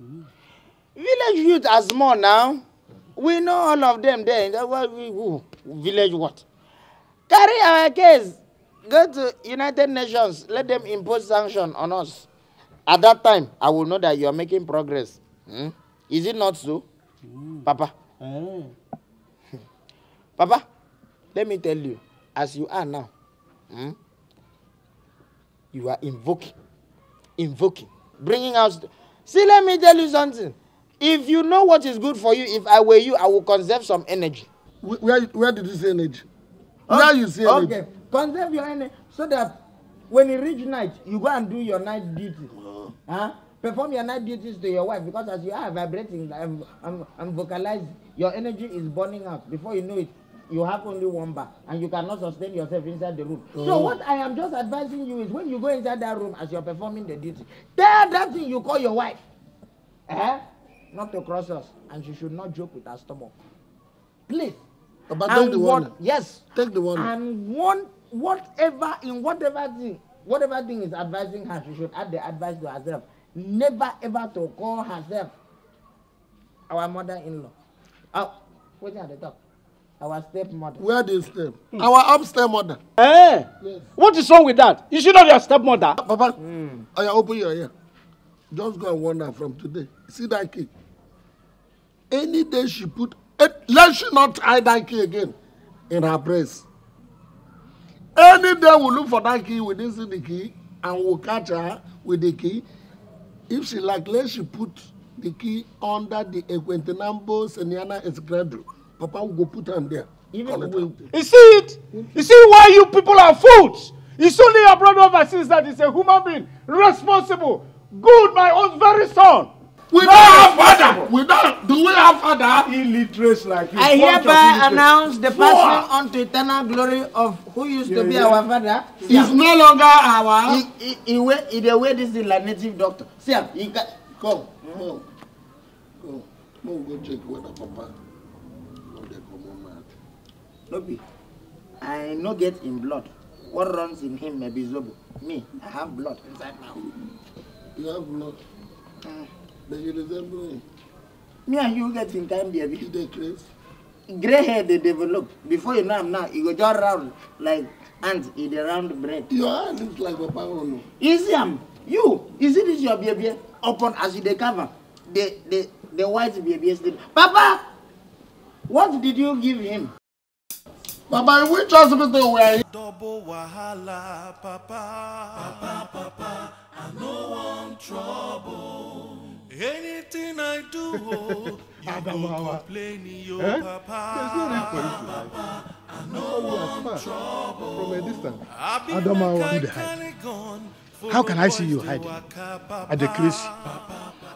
Mm. Village youth are small now. We know all of them there. That's we who? Village what? Carry our case. Go to United Nations. Let them impose sanction on us. At that time, I will know that you are making progress. Hmm? Is it not so? Mm. Papa. Mm. Papa, let me tell you, as you are now, hmm, you are invoking, invoking, bringing out. See, let me tell you something. If you know what is good for you, if I were you, I would conserve some energy. Where, where did you say energy? Where you say energy? Okay, conserve your energy so that when you reach night, you go and do your night duty. Uh-huh. Huh? Perform your night duties to your wife because as you are vibrating, I'm, I'm, I'm vocalizing, your energy is burning out. Before you know it, you have only one bar and you cannot sustain yourself inside the room. Mm. So oh. what I am just advising you is when you go inside that room as you're performing the duty, tell that thing you call your wife. Eh? Not to cross us. And she should not joke with her stomach. Please. Oh, but and take the warning. What, yes. Take the warning. And one whatever in whatever thing, whatever thing is advising her, she should add the advice to herself. Never ever to call herself our mother-in-law. Oh, waiting at the top. Our stepmother. Where do step? Mm. Our upstairs mother. Eh? Yes. What is wrong with that? You should not be your stepmother. Papa, mm. I open your ear. Just go and warn her from today. See that key? Any day she put, eh, let she not tie that key again in her breast. Any day we look for that key, we didn't see the key, and we catch her with the key. If she like, let she put the key under the Equentinambo Seniana escradron. Papa will go put hand there. Even we, you see it? You see why you people are fools? It's only your brother overseas that is a human being, responsible, good, my own very son. We don't have father. We don't. Do we have father? Illiterate like you. I hereby announce the passing on to eternal glory of who used yeah, to be yeah. our father. He's yeah. no longer our. He, he, he, way, he the way this is like native doctor. See He got, come, yeah. come, come, come, go check the papa no be i no get in blood what runs in him may be zobo me i have blood inside my own. you have blood uh, mm. but you resemble me. me and you get in time baby. you dey craze. grey hair they develop before you know him. now he go just round like ant e the round bread. your hand look like papa own o. you see am you you see this your baby Open as you dey the the the white baby's. sleep papa what did you give him. Baba, which hospital were you? Double wahala, papa. Papa, papa, I know I'm trouble. Anything I do, oh, [LAUGHS] you go complain, yo, eh? papa. Papa, I know oh, I'm trouble. From a distance, I've been Adamawa, mechanical How can I see you hiding at the crease?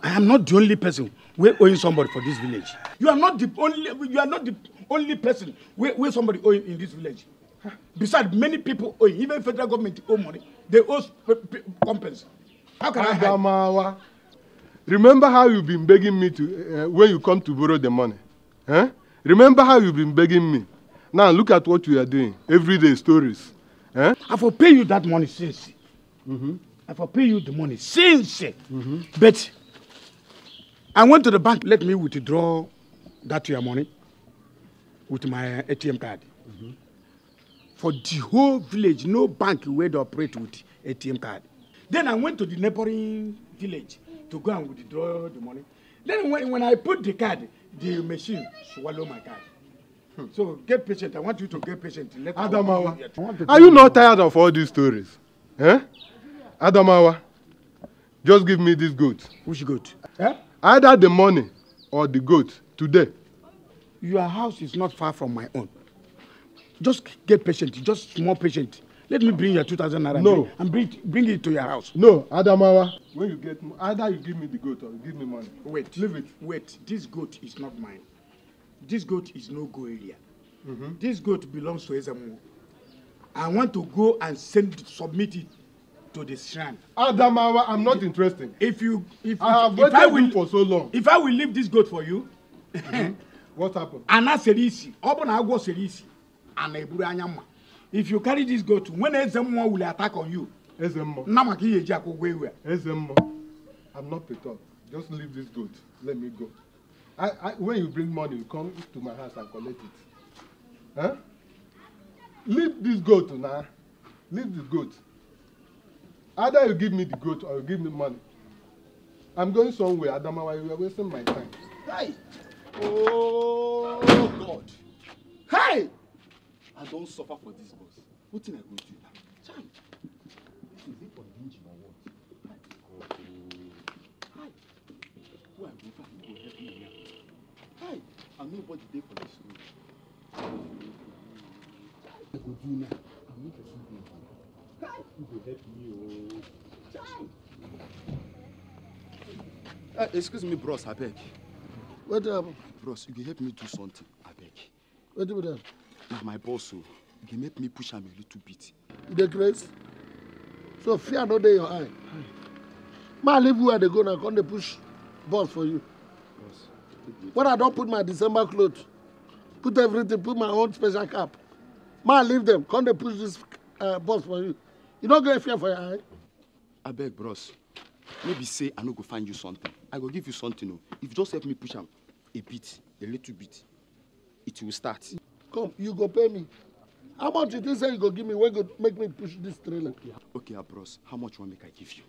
I am not the only person we owing somebody for this village. You are not the only you are not the only person we owe somebody owing in this village. Besides, many people owe, even federal government owe money. They owe compensation. How can Adamawa, I hide? Remember how you've been begging me to uh, when you come to borrow the money. Huh? Eh? Remember how you've been begging me. Now look at what you are doing. Everyday stories. Huh? Eh? I will pay you that money since. Mm-hmm. I for pay you the money since. Eh? Mm-hmm. But I went to the bank. Let me withdraw that your money with my ATM card. Mm-hmm. For the whole village, no bank will operate with ATM card. Then I went to the neighboring village to go and withdraw the money. Then when, when I put the card, the machine swallow my card. Hmm. So get patient. I want you to get patient. Let Adamawa, are you not tired of all these stories? Eh? Adamawa, just give me this goat. Which goat? Eh? Either the money or the goat today. Your house is not far from my own. Just get patient, just more patient. Let me bring your 2,000 naira no. and bring, bring it to your house. No, Adamawa, when you get either you give me the goat or you give me money. Wait. Leave it. Wait, this goat is not mine. This goat is no go area. Mm -hmm. This goat belongs to Ezamu. I want to go and send submit it to the shrine. Adamawa, I'm not interested. If you, if I have waited I will, you for so long. If I will leave this goat for you. Mm-hmm. What happened? [LAUGHS] Ana sere isi, ọ bụ ana eburu anya If you carry this goat, when eze will attack on you. Eze mmụọ. Nna maka ihe I'm not picked up. Just leave this goat. Let me go. I, I, when you bring money, you come to my house and collect it. Huh? Leave this goat now. Leave the goat. Either you give me the goat or you give me money. I'm going somewhere, Adamawa. You are wasting my time. Hey! Oh, God! Hey! I don't suffer for this, boss. What thing I go do now? Cham! This is it for lynching what? Hi! Who I go find help me Hi! I'm nobody for this road. What I go do now? I'm not a fool. Uh, excuse me bros abeg. wetin happen. bros you go help me do something abeg. wetin be that. na my boss o oh, you go make me push am a little bit. The grace. so fear no day, your eye. ma leave where they go now come they push boss for you. Boss, What i don't put my december clothes. put everything put my own special cap ma leave them come they push this uh, boss for you you don't get fear for your eye. beg, bros Maybe say i no go find you something i go give you something o oh. if you just help me push him a bit a little bit it will start. come you go pay me how much you think say you go give me Where go make me push this trailer. okay ah, Bros. how much one make i give you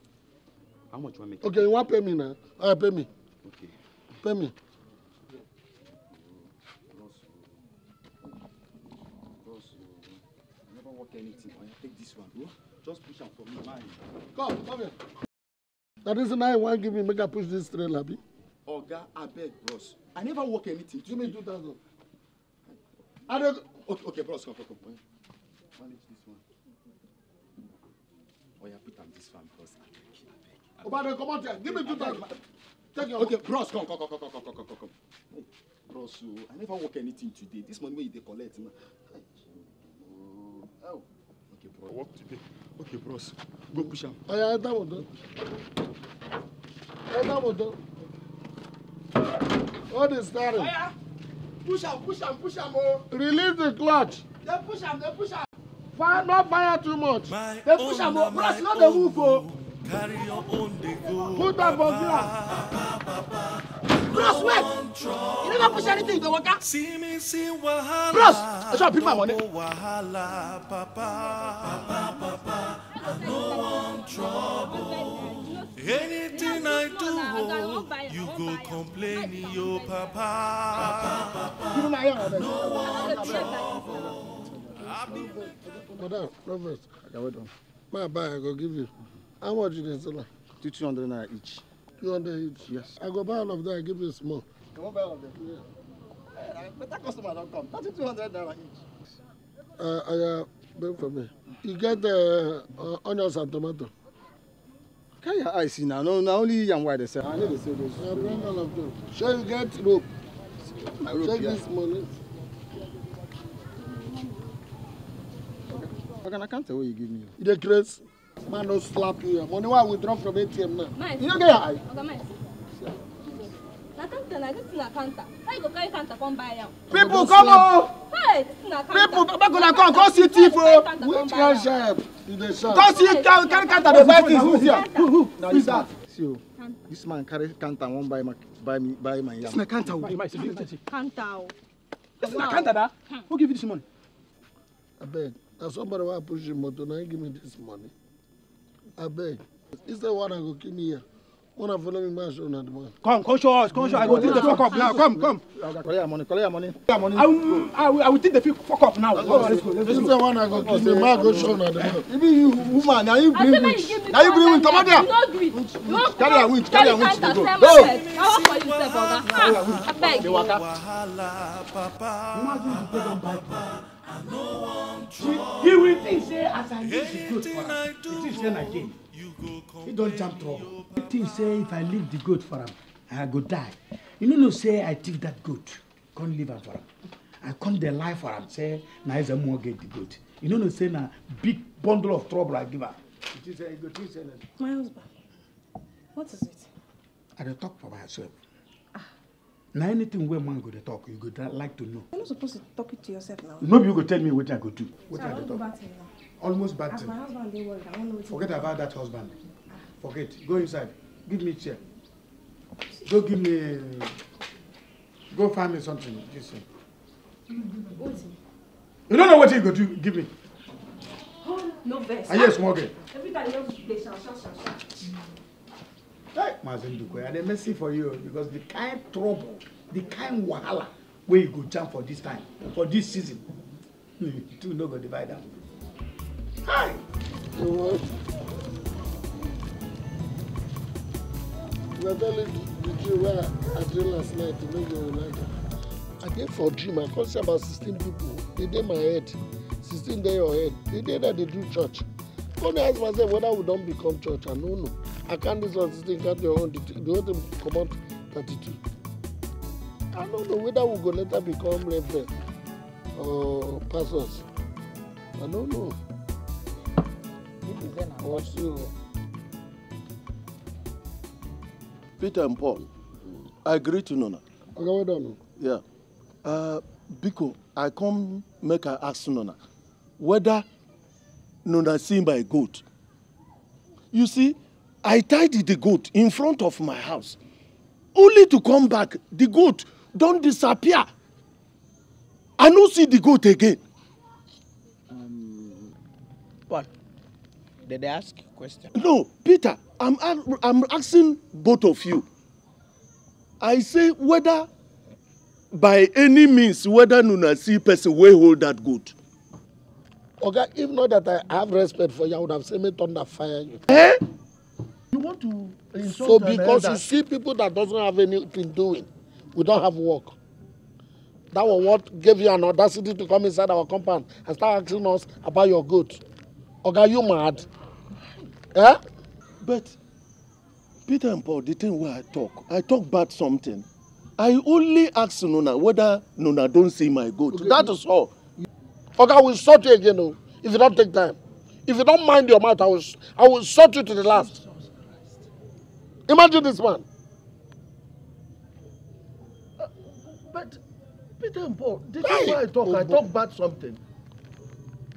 how much one make. okay you want pay me now? all right pay me. okay pay me. anything. Oya, take this one. Oh. Just push am for me, mine. Come, come here. That is why you want give me make I push this train, Abi. Oga, beg, bros. I never work anything. Give me two thousand. I don't. Okay, okay, bros, come, come, come. Manage this one. Oh, Oya, put am this one, bros. beg. Oh, brother, come out here. Give me two thousand. Take your. Okay, bros, come, come, come, come, come, come, come, come. bros, oh, I never work anything today. This money wey you collect na. Oh, oh. Okay, bro. I work today. Okay, bros. Go push am. Oya, enter motor. Enter motor. What is starting? Oya, push him, push him, push him, oh. Release the clutch. They push him, they push him. Fire, not fire too much. My they push him, oh. Bros, not the move, oh. Carry your own, they go. Put am for ground. Bros, wait! You never push anything, go waka. See me, see wahala. Bros, I shall pick my money. Wahala, papa, papa, papa. No one trouble. Anything I do, you go complaining, yo papa. No one trouble. Madam, Proverbs, I can wait on. My bag, I go give you. How much did they sell? hundred naira each. Two hundred each? Yes. I go buy all of that, I give you small. Come on, buy all of them. Yeah. Hey, better customer don't come. two hundred naira each. Uh, I, uh, beg for me e get uh, uh, onions and tomato carry your eyes see No, no, only young white dey sell i need to sell those. i bring all of them Shall you get rope my rope check this money. I na counter wey you give me. you dey craze man don't slap you money wey we drop from atm now Nice. you no get your eye. People come on! Hey, People, back on come, come see thief oh! Which one sharp? Come see carry counter the buy things, who's here? Who is that? See o, this man carry counter wan buy my buy me buy my yam. This man counter o. Counter o. This man counter da? Hmm. Who give you this money? Abeg, na somebody wey push him. motor na give me this money. is instead one I go kill here. Wanna follow me, man? Show not Come, come show us. Come show. I will take the fuck up now. Come, come. Collect your money. Collect your money. I will, I will, I will take the fuck up now. Let's go. Let's go. This is the one I go kiss. The man go show not the man. Even you, woman, now you bring witch. Now you bring witch. Come out there. Don't do it. Carry a witch. Carry a witch. Go. Go. I work for you, sir, brother. I beg. Imagine you take them back. He will think say as I leave the goat for am, he think say na game. He don jam trouble. He think say if I leave the goat for am, I go die. You no know say I take that goat, come leave am for am. I come dey lie for am say na Ezemuo get the goat. You no know say na big bundle of trouble I give am. He think say he go think say na. My husband, what is it? I dey talk for myself na anything wey man go dey talk you go like to know. you're not supposed to talk it to yourself now. no be you go tell me wetin i go do wetin i go talk. almost bad thing. as my husband dey worried i wan know wetin. forget about that husband ah. forget go inside give me chair go give me go find me something this thing. you no know wetin you go do give me. oh no vex. are you a small girl. Ah, every time you just dey shout shout shout shout. Hey, eh, Mazenduko, I dey mercy for you because the kind trouble, the kind wahala wey you go jam for this time, for this season, [LAUGHS] you two no go divide am. Hi. Oh. na the dream wey i dream last night e no go like i dey for dream i come see about sixteen people They dey my head sixteen day your head They dey that they do church Go dey ask myself whether we don't become church. I no know. I can't this one Can't do your The whole thing come out 32. I don't know whether we go later become reverend or pastors. I no know. Also, Peter and Paul, I agree to Nona. Okay, well done. Yeah. Uh, Biko, I come make I ask Nona whether no seen by a goat you see i tied the goat in front of my house only to come back the goat don't disappear i no see the goat again. Um, what did i ask you question. no peter i'm i'm asking both of you i say whether by any means whether una see person wey hold that goat Oga, okay, if not that I have respect for you, I would have seen me thunder fire you. Eh? You want to insult So because you see people that doesn't have anything doing, we don't have work. That was what gave you an audacity to come inside our compound and start asking us about your goods. Oga, okay, you mad? Eh? But Peter and Paul, the thing where I talk, I talk about something. I only ask Nuna whether Nuna don't see my goat. Okay. That is all. Okay, I will sort you again, though, if you don't take time. If you don't mind your mouth, I will, I will sort you to the last. Imagine this man. Uh, but, Peter and Paul, did hey, you know I talk? Oh, I talk about something.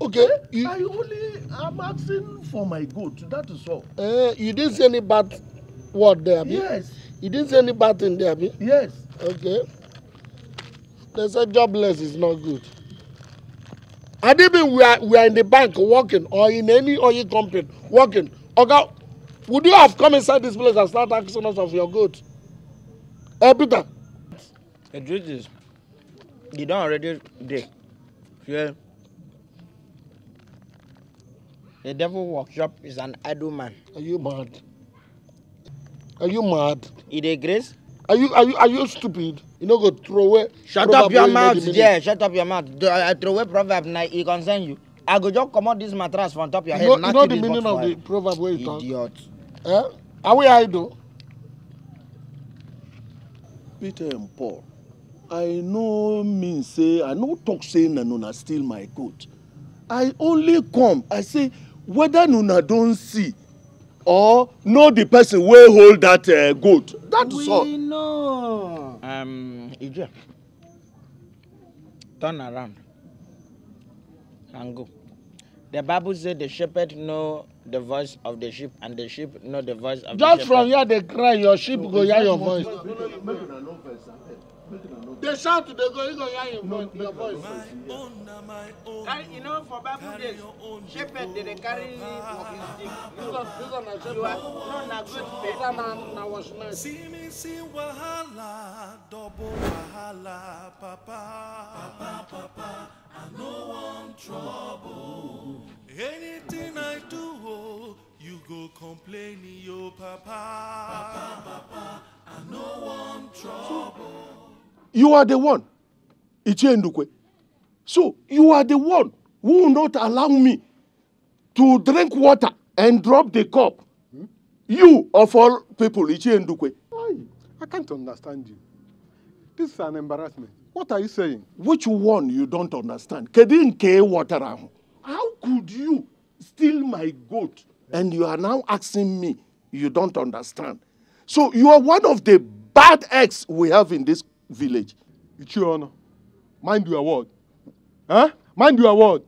Okay. Eh? You, I only, I'm asking for my good, that is all. Uh, you didn't say any bad word there, Abi? Yes. You didn't say any bad thing there, Abi? Yes. Okay. They said jobless is not good. I didn't mean we are, we are in the bank working or in any oil company working. Oga, would you have come inside this place and start asking us of your goods? Hey, eh, Peter. The truth is, you don't already dig. Yeah. The devil workshop is an idle man. Are you mad? Are you mad? It is grace. Are you are you are you stupid? You no go throw away. Shut up your mouth, yeah. Shut up your mouth. Do, I throw away proverb now. It concern you. I go just comot this mattress from top your head. You know, you know the meaning of the proverb where you talk. Idiot. Eh? Are we idle? Peter and Paul, I no mean say I no talk say na una steal my goat. I only come. I say whether una don see or know the person wey hold that uh, goat that is all. we know. Um, Ijea, turn around and go the bible say the shepherd know the voice of the sheep and the sheep know the voice of just the shepherd. just from here dey cry your sheep no, go hear your voice. No, no, They shout to the go, you go hear your voice. Your voice. Carry, you know, for Bible days, shepherd they dey carry walking stick. This one, this one na shepherd. No, na great this one na na watchman. See me see wahala, double wahala, papa, papa, papa. I no want trouble. Anything I do, oh, you go complaining, yo, papa, papa, papa. I no want trouble. You are the one. Ichiendukwe. So you are the one who will not allow me to drink water and drop the cup. You, of all people, Ichiendukwe. I can't understand you. This is an embarrassment. What are you saying? Which one you don't understand? Kedin ke water How could you steal my goat and you are now asking me you don't understand? So you are one of the bad eggs we have in this village. Ichiona, mind your word. Huh? Mind your word.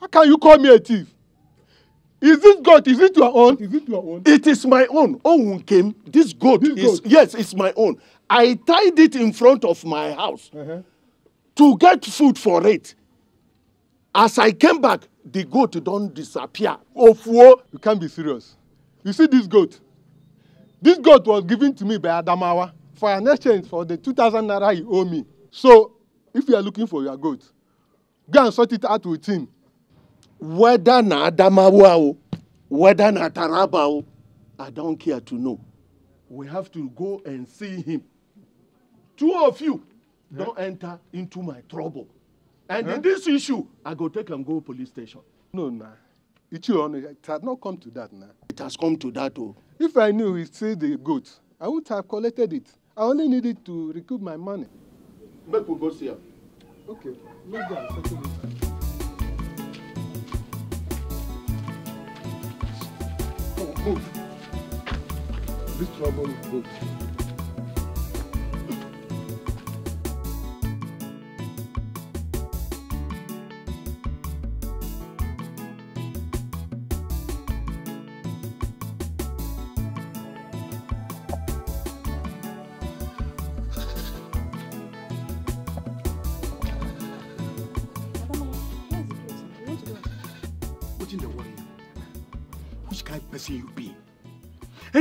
How can you call me a thief? Is this goat? Is it your own? Is it your own? It is my own. Oh, came. This goat this is goat. yes, it's my own. I tied it in front of my house uh -huh. to get food for it. As I came back, the goat don't disappear. Ofuo, you can't be serious. You see this goat? This goat was given to me by Adamawa for an exchange for the 2,000 naira he owe me. So if you are looking for your goat, go and sort it out with him. Whether na Adamawa o, whether na Taraba o, I don't care to know. We have to go and see him. Two of you yeah. don't enter into my trouble. And huh? in this issue, I go take am go police station. No, nah. your Onu, it has not come to that now. Nah. It has come to that, oh. If I knew he still the goat, I would have collected it. I only needed to recoup my money. Make we go see her. Okay, make them settle Move. This trouble is good.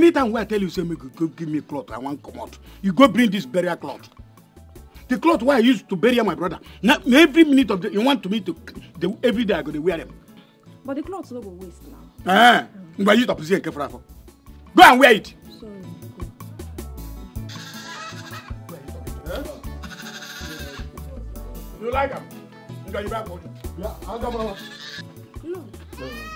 every time wey i tell you say make you go give me cloth i wan comot you go bring this burial cloth the cloth wey i use to bury my brother na every minute of the you want to me to the every day i go dey wear them. but the cloth no go waste now. Eh, ngba use tapusi and kefra for go and wear it. Sorry, you like am? Ngba you buy for me. Yeah, I'll come over. No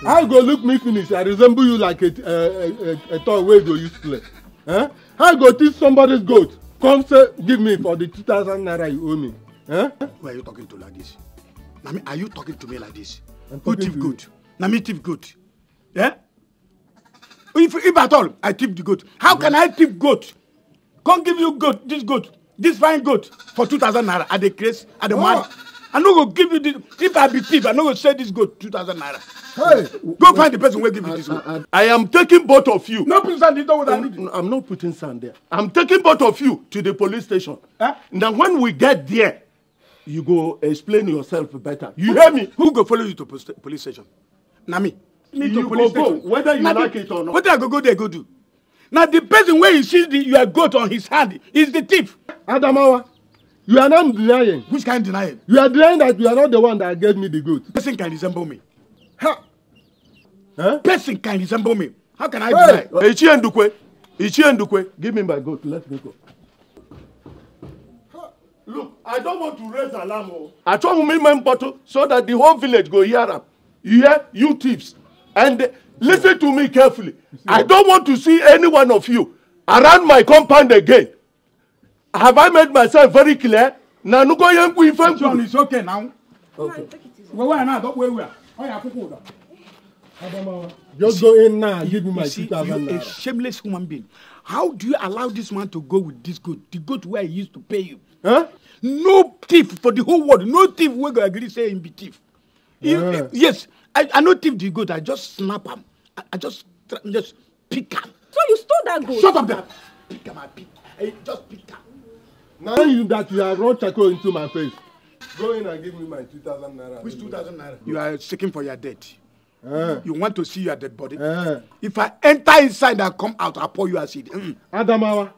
how go look me finish i resemble you like a a a, a toy wey you go use play eh? how go teach somebody's goat come say give me for the two thousand naira you owe me. Eh? who are you talking to like this na me are you talking to me like this who oh, tip goat na me tip goat eh? if if at all i tip the goat how can i tip goat come give you goat this goat this fine goat for two thousand naira i dey craze i dey mad. Oh i no go give you this if i be thief i no go sell this goat two thousand naira. Hey, go find the person wey give you this goat. I, I, I am taking both of you. no put sand in the water. I'm, I'm not putting sand there. i'm taking both of you to the police station. Huh? Eh? na when we get there you go explain yourself better. you hear me. who go follow you to police station. na me. me you to police station. go whether you na like the, it or not. wetin i go go there go do. Now, the person where you see the your goat on his hand is the thief. adamawa You are not denying. Which kind of denying? You are denying that you are not the one that gave me the goat. Person can resemble me. Ha! Huh? Person can resemble me. How can I hey. deny? Ichi Ndukwe. Ichi Ndukwe. Give me my goat. Let me go. Look, I don't want to raise alarm. Oh. I told me my bottle so that the whole village go hear up. You hear? You thieves. And uh, listen to me carefully. I don't want to see any one of you around my compound again. Have I made myself very clear? Na nuko yengu ife. John, is okay now. Okay. Wewe na don't wewe. Oya kuku da. Just go in now. Give me my two thousand naira. A shameless human being. How do you allow this man to go with this goat? The goat where he used to pay you. Huh? No thief for the whole world. No thief wey go agree say him be thief. Yeah. If, if, yes, I, I no thief the goat. I just snap am. I, I just just pick am. So you stole that goat. Shut up there. Pick am I pick. I just pick am. Now you that you have run charcoal into my face. Go in and give me my 2,000 naira. Which 2,000 naira? You are seeking for your dead. Uh, you want to see your dead body? Uh, if I enter inside and come out, I'll pour you acid. Mm. Adamawa,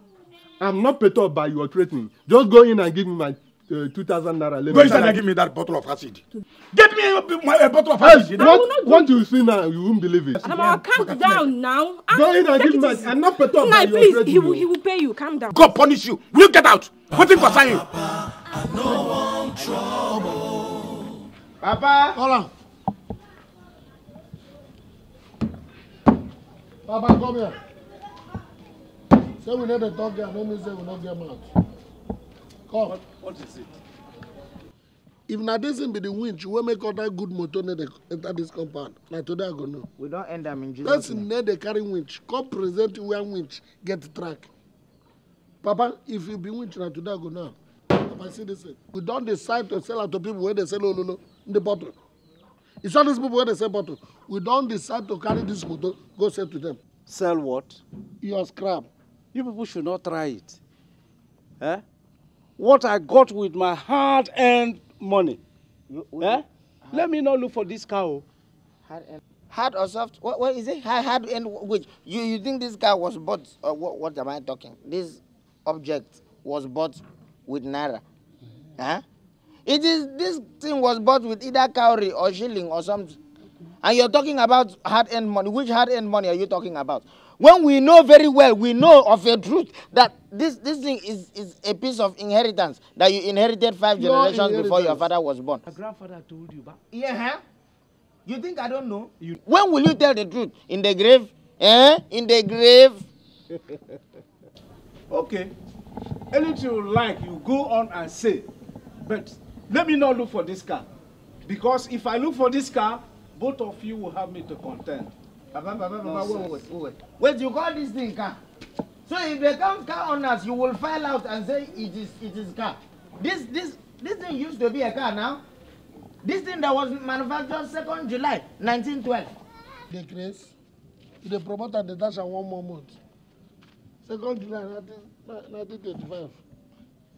I'm not perturbed by your threatening. Just go in and give me my uh, 2,000 naira. Go inside and give me that bottle of acid. Get me a, my, a bottle of acid. Hey, what, what you see now, you won't believe it. Adamawa, calm down, down now. go in and give me my... I'm not perturbed by please, your threatening. Please, he will, he will pay you. Calm down. God punish you. Will you get out? nothing concern you. Papa. Hola. Papa, come here. Say we need a dog here. No mean say we not get mouth. Come. What, what is it? If na this be the winch wey make all that good motor no dey enter this compound, na today I go know. We don't end them in Jesus. Person no dey carry winch, come present you where winch get track. Papa, if you be winching na today I go now. Papa, see this We don't decide to sell out to people wey dey no, no, in the bottle. You saw these people wey they sell bottle. We don't decide to carry this bottle. go sell to them. Sell what? Your scrap. You people should not try it. Eh? What I got with my hard-earned money. You, eh? Hard. Let me not look for this cow. Hard-earned. Hard or soft? What, what is it? Hard, hard and which? You, you think this guy was bought? Or what, what am I talking? This object was bought with naira. Huh? It is this thing was bought with either cowrie or shilling or something. And you're talking about hard-earned money. Which hard-earned money are you talking about? When we know very well, we know of a truth that this, this thing is, is a piece of inheritance that you inherited five your generations before your father was born. Your grandfather told you but... Yeah. Huh? You think I don't know? You... When will you tell the truth? In the grave? Eh? In the grave? [LAUGHS] Okay. Anything you like, you go on and say. But let me not look for this car. Because if I look for this car, both of you will have me to contend. Baba, Baba, Baba, wait, wait, wait. Wait, you call this thing car? So if they come car owners, you will file out and say it is it is car. This this this thing used to be a car now. This thing that was manufactured second nd July 1912. The grace, the promoter, the dasher, one more month second July nineteen thirty-five.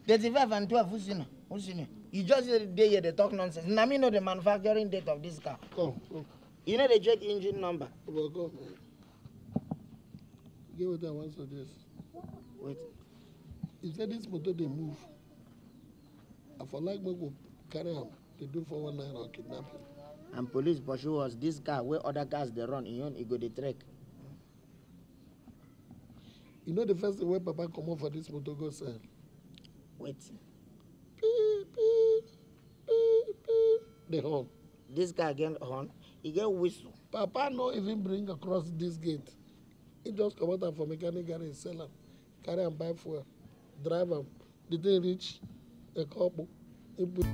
thirty-five and twelve who's in who's in you just dey here dey talk nonsense na me know the manufacturing date of this car. come come. you no dey check engine number. but come get wetin i wan suggest. wait. you say this motor dey move i for like make we carry am dey do one naira or kidnapping. and police pursue us this car wey other cars dey run im own e go dey trek you know the first thing wey papa comot for this motor go sell. wetin. pii pii pii pii the horn. This guy get horn He get whistle. papa no even bring across this gate he just come am for mechanic garage sell am carry am buy fuel drive am the thing reach ekopo he put.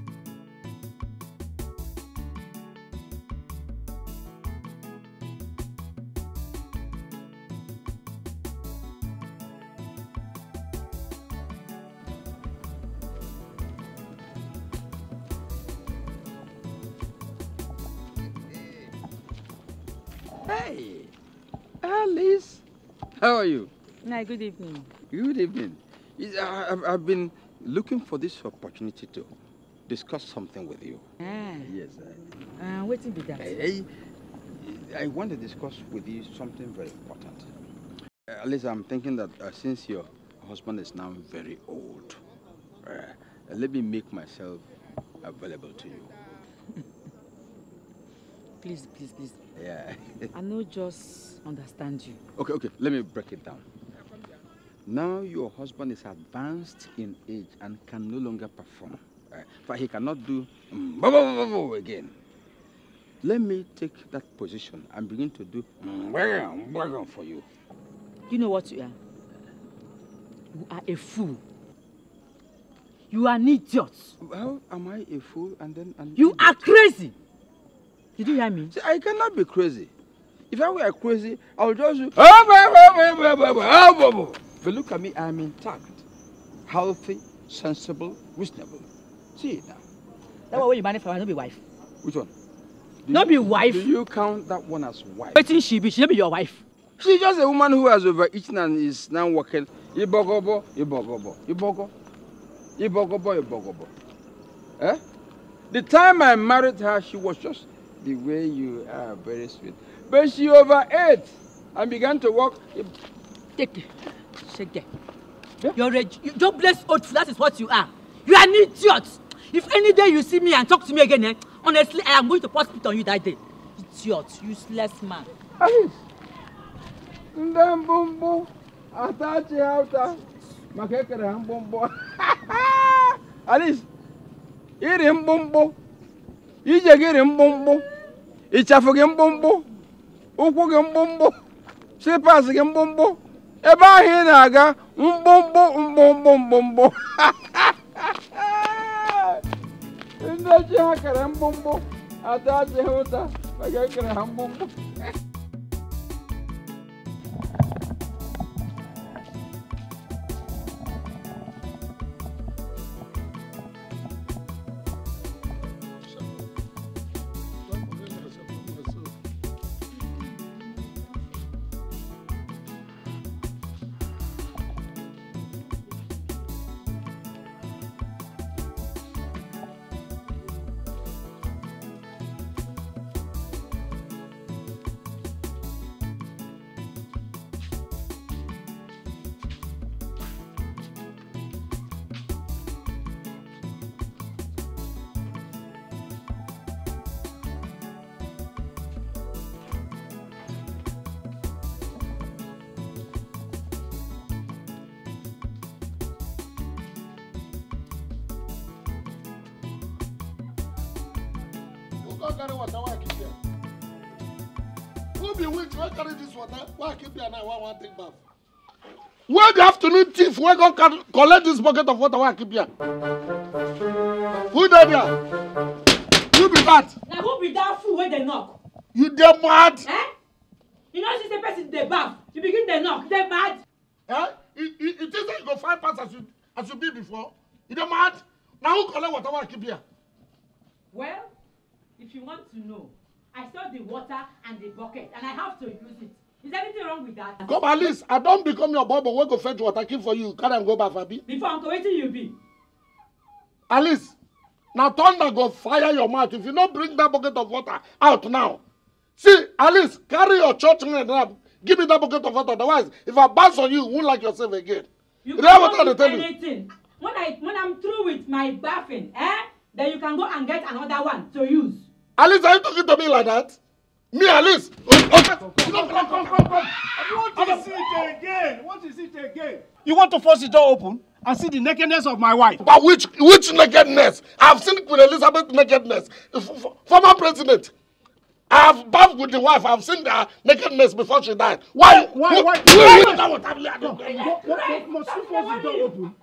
How are you? No, good evening. Good evening. I've been looking for this opportunity to discuss something with you. Ah. Yes. I, uh, ah, waiting be that. I, I, I, want to discuss with you something very important. Uh, at least I'm thinking that uh, since your husband is now very old, uh, let me make myself available to you. [LAUGHS] please, please, please. Yeah. I know just understand you. Okay, okay, let me break it down. Now your husband is advanced in age and can no longer perform. For uh, but he cannot do mm, again. Let me take that position and begin to do mm, for you. You know what you are? You are a fool. You are an idiot. How am I a fool and then an You idiot? are crazy. Did you hear me? See, I cannot be crazy. If I were crazy, I would just. But look at me, I'm intact, healthy, sensible, reasonable. See now. That one where you marry for, I not be wife. Which one? Do not you, be wife. Do you count that one as wife? Waiting she be, she not be your wife. She's just a woman who has overeaten and is now working. Ibogobo, You Ibogo, Ibogobo, Ibogobo. Eh? The time I married her, she was just the way you are very sweet. But she overate and began to walk. Take it. Shake it. Yeah? You're a you, bless old that is what you are. You are an idiot. If any day you see me and talk to me again, eh, honestly, I am going to pour spit on you that day. Idiot, useless man. Ndambumbu, atachi hauta, makekere mbumbu. [LAUGHS] Alice, iri mbumbu, ije giri mbumbu. ịchafụ gị mkpụmkpụ ụkwụ gị mkpụmkpụ slipas gị mkpụmkpụ ebe ahụ ị na-aga mkpụmkpụ mkpụmkpụ mkpụmkpụ [LAUGHS] ndị ji ha kere mkpụmkpụ ata ji ha ụta ekere ha mkpụmkpụ wey go collect this bucket of water wey I keep here? Who dey there? Who be that? Na who be that fool wey dey knock? You dey mad? Eh? You know see say person dey baff, you begin dey knock, you dey mad? Eh? You you think say you go find pass as you as you be before? You dey mad? Na who collect water wey I keep here? Well, if you want to know, I saw the water and the bucket and I have to use it. Is there anything wrong with that? Come at least. I don become your bobo wey go fetch water keep for you carry am go baff abi. Before uncle wetin you be? At least na thunder go fire your mouth if you no bring that bucket of water out now. See at least carry your church rent now give me that bucket of water otherwise if I bounce on you you won't like yourself again. You Remember what I anything. When I when I'm through with my baffing eh then you can go and get another one to use. At least are you talking to me like that? Me at least. Okay. Come, come, come, come, come. You want to force the door open and see the nakedness of my wife? But which which nakedness? I've seen Queen Elizabeth nakedness. F former president. I've bathed with the wife. I've seen her nakedness before she died. Why? Why? Why? Why? Why? Why? Why? Why? Must you force the door open?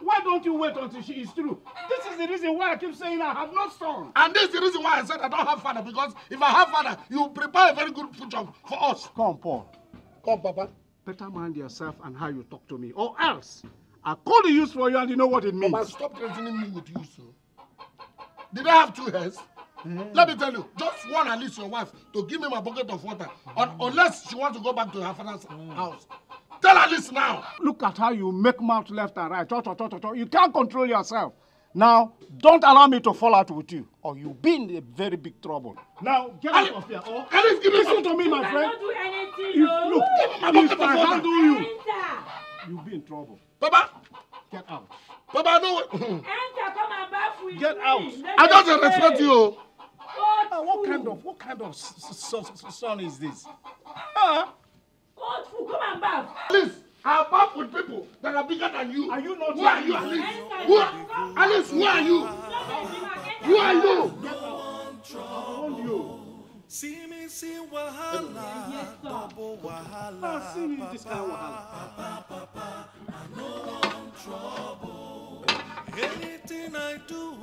Why don't you wait until she is through? This is the reason why I keep saying I have no son. And this is the reason why I said I don't have father because if I have father, you prepare a very good future for us. Come, Paul. Come, Papa. Better mind yourself and how you talk to me, or else I call the use for you and you know what it means. Mama, stop threatening me with use. Did I have two heads? Mm. Let me tell you, just one at least your wife to give me my bucket of water, mm. un unless she wants to go back to her father's mm. house. Tell her this now. Look at how you make mouth left and right. Cho, cho, cho, cho, You can't control yourself. Now, don't allow me to fall out with you, or you'll be in a very big trouble. Now, get out of here. Or Alice, give me listen to me, my friend. I don't do anything. If, no. Look, if I handle you, enter. you'll be in trouble. Baba, get out. Baba, no. enter, come and bath with Get me. out. Let I don't respect you. What, uh, what kind of what kind of son is this? Uh, God, Come and bath. Please are back with people that are bigger than you. Are you not who are you, Alice? Who are, Alice, who are you? Who are you? See me see wahala, bubble wahala. Ah, see me this kind of wahala. Papa, papa, I know I'm trouble. Anything I do,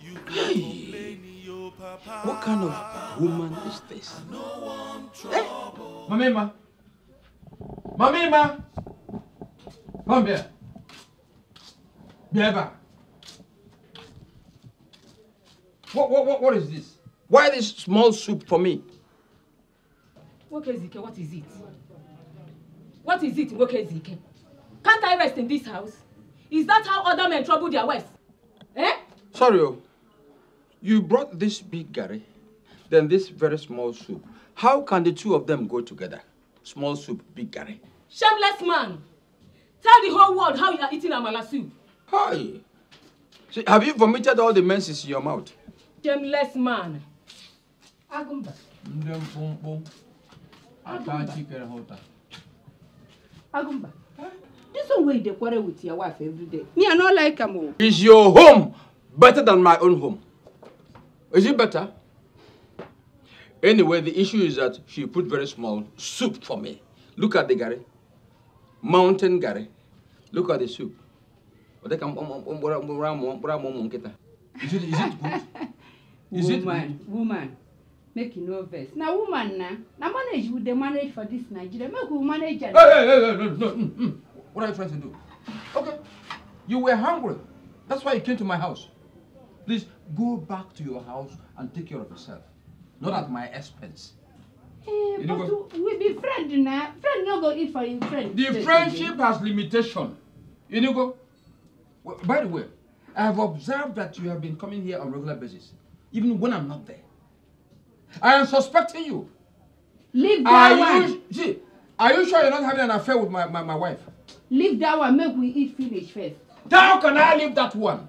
you complain, yo, papa. What kind of woman is this? I know I'm trouble. Hey, Mamema. Mamima, come here. Biaba. What, what, what, what is this? Why this small soup for me? Wokezike, what is it? What is it, Wokezike? Can't I rest in this house? Is that how other men trouble their wives? Eh? Sorry, oh. you brought this big Gary, then this very small soup. How can the two of them go together? Small soup, big curry. Shameless man! Tell the whole world how you are eating amala soup. Hi! See, have you vomited all the menses in your mouth? Shameless man! Agumba. Ndem Agumba. This one way they quarrel with your wife every day. Me, I don't like him. Is your home better than my own home? Is it better? Anyway, the issue is that she put very small soup for me. Look at the gari. Mountain gari. Look at the soup. Is it, is it good? [LAUGHS] Is woman, it good? woman, make you no vex. Now, woman, now, manage with the manage for this Nigeria. Make we manage. it? Hey, hey, hey, no, no. Mm, mm, What are you trying to do? Okay, you were hungry. That's why you came to my house. Please go back to your house and take care of yourself not at my expense. Eh, but go, we be friend now. Friend no go eat for you, friend. The friendship has limitation. You know, go. Well, by the way, I have observed that you have been coming here on regular basis, even when I'm not there. I am suspecting you. Leave that are one. You, see, are you sure you're not having an affair with my, my, my wife? Leave that one. Make we eat finish first. How can I leave that one?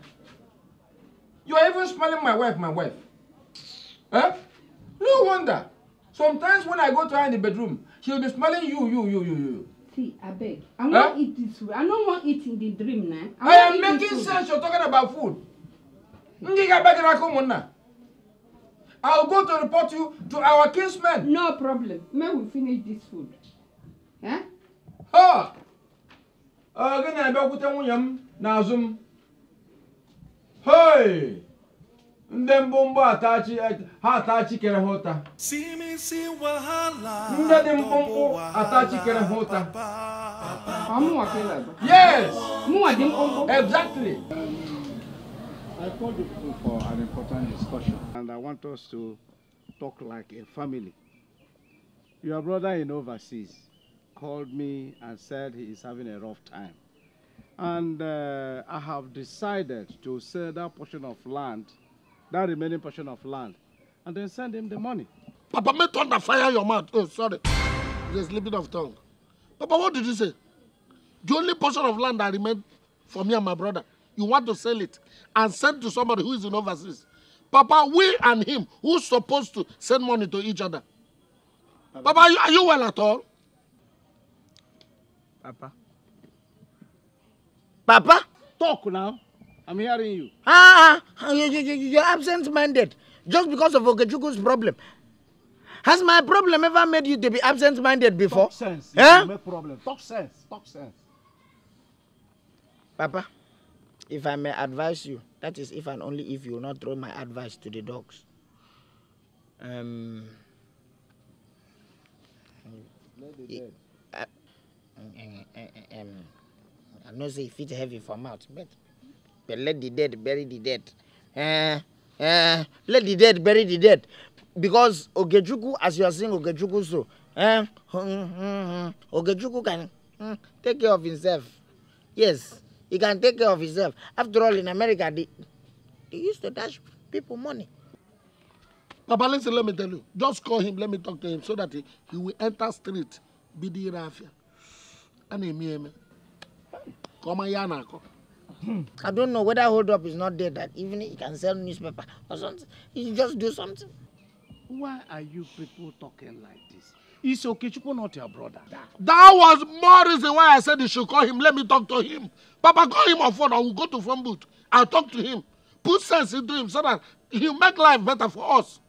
You are even smelling my wife, my wife. Huh? Eh? No wonder. Sometimes when I go to her in the bedroom, she'll be smelling you, you, you, you, you. See, I beg. I won't huh? eat this way. I don't want eat in the dream now. I, I am making sense you're talking about food. I'll go to report you to our kinsmen. No problem. May we finish this food. Huh? Eh? Ha! Oh, gonna be a good one, Nazum. Hey! ndị mkpụmkpụ ha ata chikere ha ụta ndị dị mkpụmkpụ ata chikere ha ụta yes mụnwa dị mkpụmkpụ exactly I called you for an important discussion, and I want us to talk like a family. Your brother in overseas called me and said he is having a rough time. And uh, I have decided to sell that portion of land that remaining portion of land and then send him the money. Papa, may thunder fire your mouth. Oh, sorry. You're slipping of tongue. Papa, what did you say? The only portion of land that remained for me and my brother, you want to sell it and send to somebody who is in overseas. Papa, we and him, who's supposed to send money to each other? Papa, Papa are, you, are you well at all? Papa. Papa? Talk now. I'm hearing you. Ah, you, are absent-minded just because of Okechuku's problem. Has my problem ever made you to be absent-minded before? Talk sense. Eh? Make problem. Talk sense. Talk sense. Papa, if I may advise you, that is if and only if you will not throw my advice to the dogs. Um, I, I, know say it heavy for mouth, but But let the dead bury the dead. Uh, uh, let the dead bury the dead. Because Ogejuku, as you are saying Ogejuku so, uh, Ogejuku can take care of himself. Yes, he can take care of himself. After all, in America, they, they used to dash people money. Papa, listen, let me tell you. Just call him, let me talk to him so that he, he will enter street, be the rafia. And he me. Come on, Yanako. I don't know whether hold up is not there that evening he can sell newspaper or something. He just do something. Why are you people talking like this? It's okay. Okechukwu not your brother. That. was more reason why I said you should call him. Let me talk to him. Papa, call him on phone. I will go to phone booth. I'll talk to him. Put sense into him so that he'll make life better for us.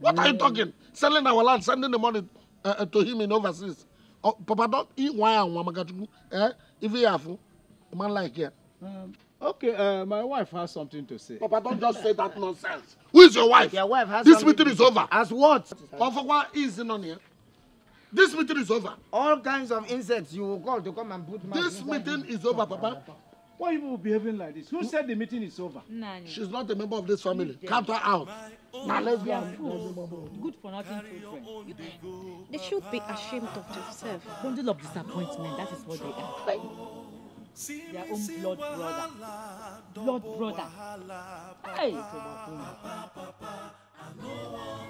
What mm. are you mm. talking? Selling our land, sending the money uh, uh, to him in overseas. Oh, Papa, don't eat wine and wamagatuku. Eh? If you have, man like here. Um, okay, uh, my wife has something to say. Papa, don't just say that nonsense. Who is your wife? Your wife has This meeting is over. As what? Ofokwa is in on here. This meeting is over. All kinds of insects you will call to come and put my... This meeting is over, Papa. Why are you behaving like this? Who hmm? said the meeting is over? Nani. She's not a member of this family. Cut her out. Now let's go. Good for nothing children. They should be ashamed of themselves. Bundle of disappointment, that is what they are their own blood brother. Blood brother. Hey, tó máa fún wọn.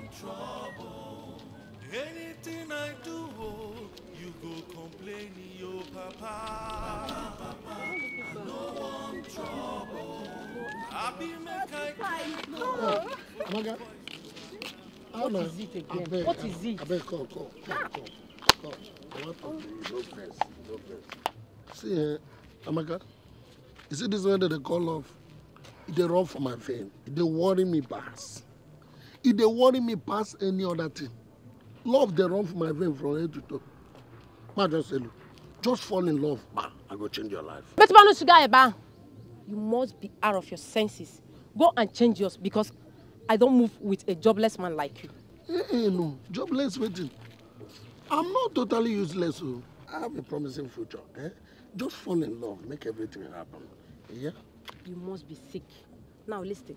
Anything I do, oh, you go complain, yo papa. papa, papa. No one trouble. I be make I cry. What is it again? Abeg, what is it? Abeg, come, call, call, call. come. I want to be no vex, no vex. See, eh, Amaka, oh you see this one that they call off? It they run for my vein. It they worry me past. It they worry me past any other thing. Love they run for my vein from head to toe. Ma just say, look, just fall in love, ma, I go change your life. But Manu Sugayeba, eh, you must be out of your senses. Go and change yours because I don't move with a jobless man like you. Eh, eh no, jobless waiting. I'm not totally useless. Oh. I have a promising future. Eh? Just fall in love, make everything happen. Yeah? You must be sick. Now listen,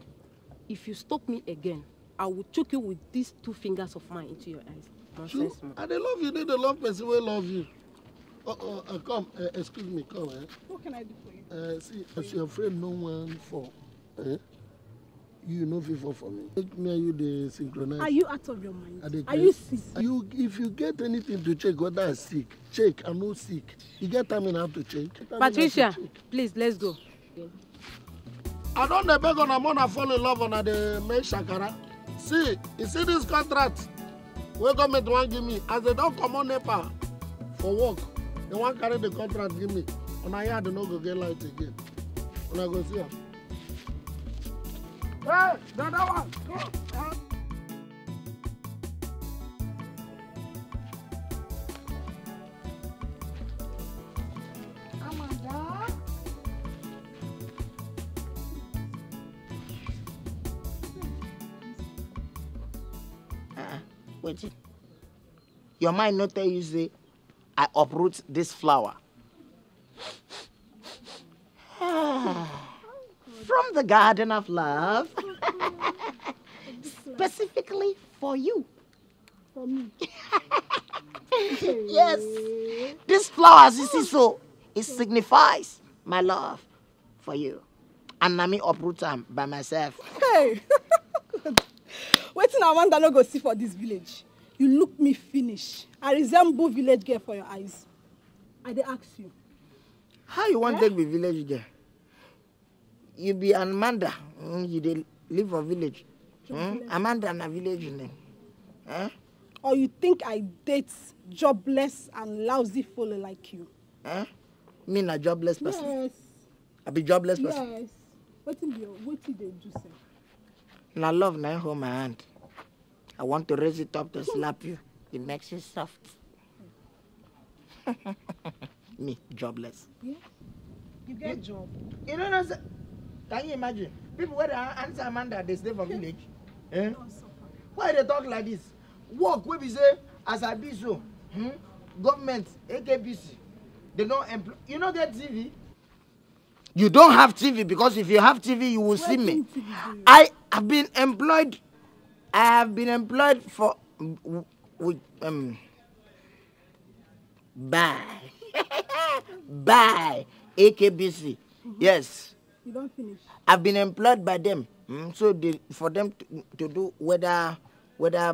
if you stop me again, I will choke you with these two fingers of mine into your eyes. Nonsense, you, man. I dey love you, dey the love person wey love you. Oh, oh, uh, come, uh, excuse me, come. Eh? What can I do for you? Uh, see, as your friend, no one for. Eh? you no fit fall for me make me and you dey synchronize. are you out of your mind are, you sick. you if you get anything to check whether i sick check i no sick you get time in how to check. patricia to check. please let's go. i don dey beg una more I fall in love una dey make shakara see you see this contract wey government wan give me as they don comot nepa for work they wan carry the contract give me una yard no go get light again una go see am. Hey, the Uh. Your mind not tell you say, I uproot this flower. the garden of love. [LAUGHS] Specifically for you. For me. [LAUGHS] yes. These flowers you see so, it signifies my love for you. And na me uproot by myself. Hey. [LAUGHS] waiting. I wonder no go see for this village. You look me finish. I resemble village girl for your eyes. I they ask you. How you want eh? take be village girl? you be an Amanda. mm, you dey live a village mm? amanda na village name eh? or you think i date jobless and lousy fellow like you eh? me na jobless person yes. i be jobless yes. person yes wetin be your wetin dey do sef na love na hold my hand i want to raise it up to slap you it makes you soft [LAUGHS] me jobless yeah. you get a job you know what Can you imagine? People where they answer Amanda they stay for [LAUGHS] village. Eh? Why they talk like this? Work wey be say as I be so, hmm? government, AKBC, they don't employ. You no get TV? You don't have TV because if you have TV, you will Where see me. I have been employed. I have been employed for with um Bye, [LAUGHS] bye AKBC. Mm -hmm. Yes. You don't finish. I've been employed by them. Mm, so for them to, to, do whether whether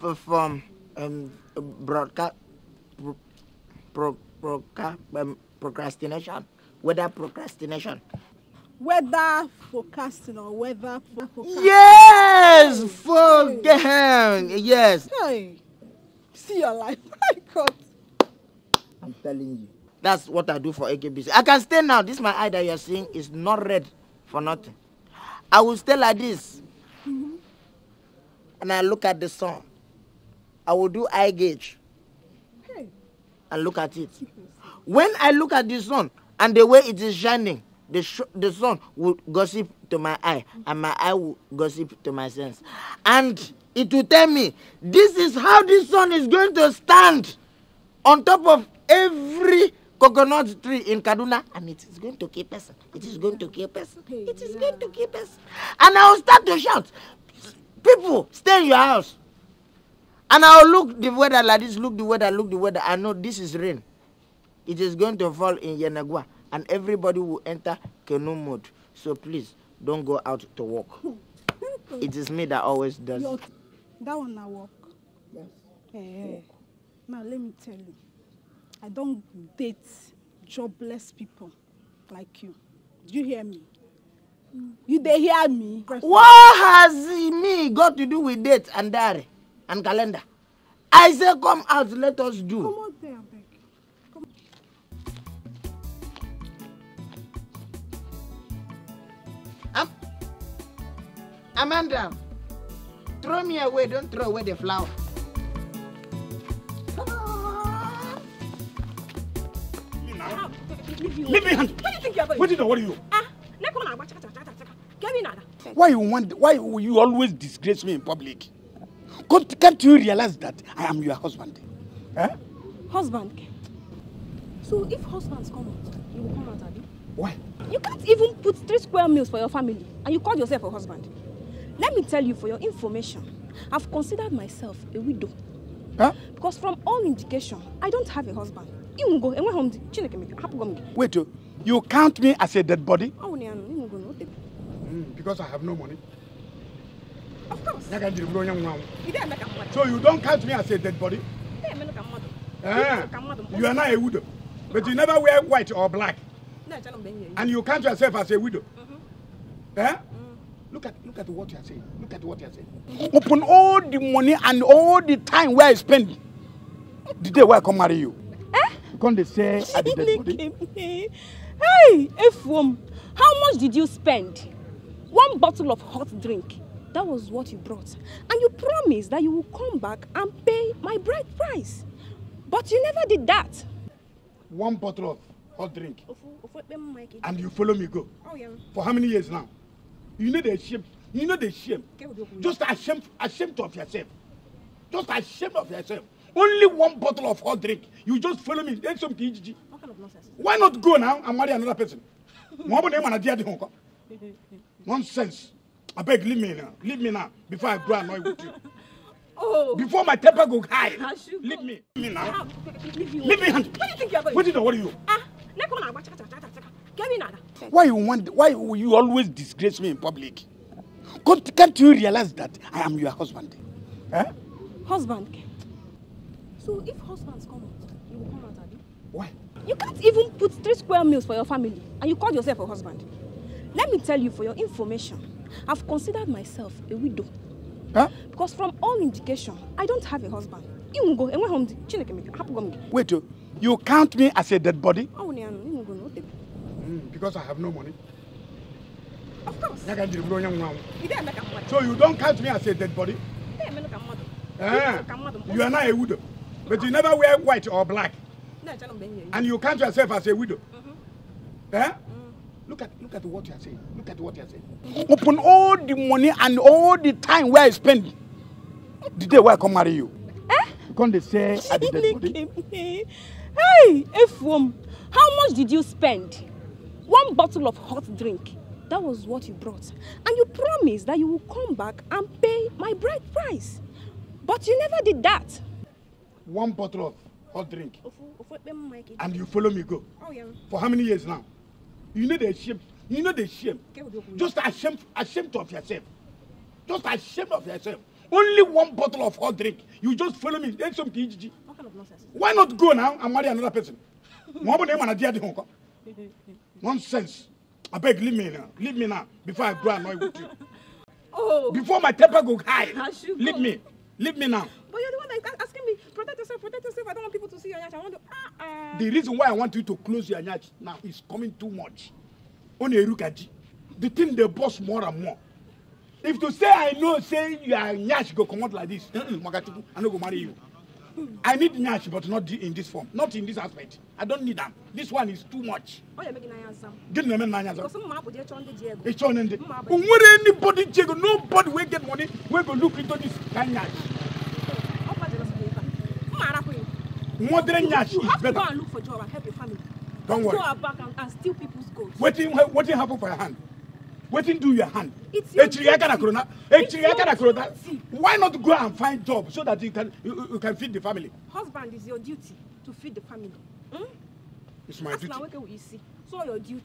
perform um, broadcast pro, pro, pro, um, procrastination, whether procrastination. Whether forecasting or whether forecasting. Yes, forget hey. Yes. Hey, see your life. [LAUGHS] My God. I'm telling you. That's what I do for AKBC. I can stay now. This my eye that you are seeing is not red for nothing. I will stay like this. Mm-hmm. And I look at the sun. I will do eye gauge. And look at it. When I look at the sun and the way it is shining, the, sh the sun will gossip to my eye and my eye will gossip to my sense. And it will tell me, this is how the sun is going to stand on top of every coconut tree in Kaduna, and it is going to kill person. It is going to kill person. It is going to kill person. And I will start to shout, people, stay in your house. And I will look the weather like this, look the weather, look the weather. I know this is rain. It is going to fall in Yenagua, and everybody will enter canoe mode. So please, don't go out to walk. [LAUGHS] it is me that always does. Your, that one I walk. Yes. Hey, eh, eh. hey. Now let me tell you. I don't date jobless people like you. Do you hear me? You dey hear me? What has me got to do with date and diary and calendar? I say come out, let us do. Come out there, abeg. Amanda, throw me away, don't throw away the flower. Leave me hand. What do you think you're going? What did I worry you? Ah, let go now. Give me another. Why you want? Why you always disgrace me in public? Can't, can't you realize that I am your husband? Eh? Husband. So if husbands come out, you will come out, Abi. Why? You can't even put three square meals for your family, and you call yourself a husband. Let me tell you, for your information, I've considered myself a widow. Huh? Because from all indication, I don't have a husband ịnwụgo enweghị m di chineke m hapụgo m gị wait oh, you count me as a dead body ọnwụ na ya nọ ịnwụgo na hmm, because i have no money of course ya ka njiri bụrụ onye nwa anwụ so you don't count me as a dead body Eh, you are not a widow but you never wear white or black and you count yourself as a widow mhm. eh? Mhm. Look at look at what you are saying. Look at what you are saying. Open all the money and all the time where I spend the day where I come marry you come they say I did Hey, F1, how much did you spend? One bottle of hot drink. That was what you brought. And you promised that you would come back and pay my bride price. But you never did that. One bottle of hot drink. And you follow me go. Oh, yeah. For how many years now? You know the shame. You know the shame. Just ashamed, ashamed of yourself. Just ashamed of yourself. Only one bottle of hot drink. You just follow me. Then some TGG. What kind of nonsense? Why not go now and marry another person? nonsense. I beg, leave me now. Leave me now before I grow annoyed with you. [LAUGHS] Oh. Before my temper go high. Leave me. Leave me now. Ah, leave me. Leave me What do you think you're going? What, do what are you? Ah, why you want? Why you always disgrace me in public? Can't, you realize that I am your husband? Eh? Husband. So if husbands come out, you will come out, Abi? Why? You can't even put three square meals for your family and you call yourself a husband. Let me tell you for your information, I've considered myself a widow. Huh? Because from all indication, I don't have a husband. Wait, oh, you, count me as a dead body? Hmm, because I have no money. Of course. So you don't count me as a dead body? Eh? You are not a widow. But you never wear white or black. And you count yourself as a widow. Mm-hmm. Eh? Mm eh? Look at look at what you are saying. Look at what you are saying. Open all the money and all the time where I spend. The day where I come marry you. Eh? Come they say I did Hey, Efum, how much did you spend? One bottle of hot drink. That was what you brought. And you promised that you will come back and pay my bride price. But you never did that one bottle of hot drink. And you follow me go. Oh, yeah. For how many years now? You know the shame. You know the shame. Just ashamed, ashamed of yourself. Just ashamed of yourself. Only one bottle of hot drink. You just follow me. Then some What kind of nonsense? Why not go now and marry another person? [LAUGHS] Nonsense. I beg, leave me now. Leave me now before I go annoy with you. [LAUGHS] Oh. Before my temper go high. Leave me. Leave me now. But you're the one that is asking me, protect yourself, protect yourself. I don't want people to see your nyach. I want to. Ah, ah. The reason why I want you to close your nyach now is coming too much. On Erukaji. The thing they boss more and more. If to say I know, say are nyash go come out like this, Magatiku, I no go marry you. I need nyash, but not in this form, not in this aspect. I don't need them. This one is too much. Oh, you're making answer. Get me an answer. Because some people just the Diego. It's on the. Where anybody Diego, nobody will get money. We go look into this kind nyash. Modern Nyash is better. Go and look for job and help your family. Don't worry. Go back and, and steal people's gold. Waiting, waiting happen for your hand. Waiting do your hand. It's your duty. It's your duty. Why not go and find job so that you can you, you can feed the family? Husband is your duty to feed the family. Hmm? It's my As duty. As you see, so your duty.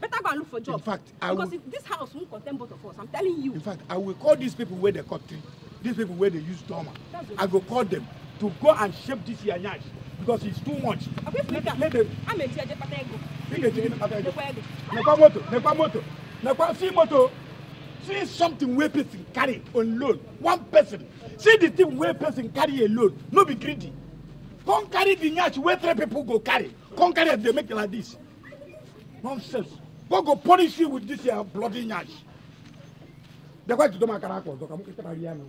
Better go and look for job. In fact, I because will, if this house won't contain both of us. I'm telling you. In fact, I will call these people where they cut tree. These people where they use dormer. I will call them to go and shape this your because it's too much. see moto. See something where person carry alone, One person. See the thing where person carry alone. loan. No be greedy. Come carry the nyash where three people go carry. Come carry as they make it like this. Nonsense. God go punish you with this your bloody nyash bịakwa jido m akara aka ọzọ ka m kịtara ya na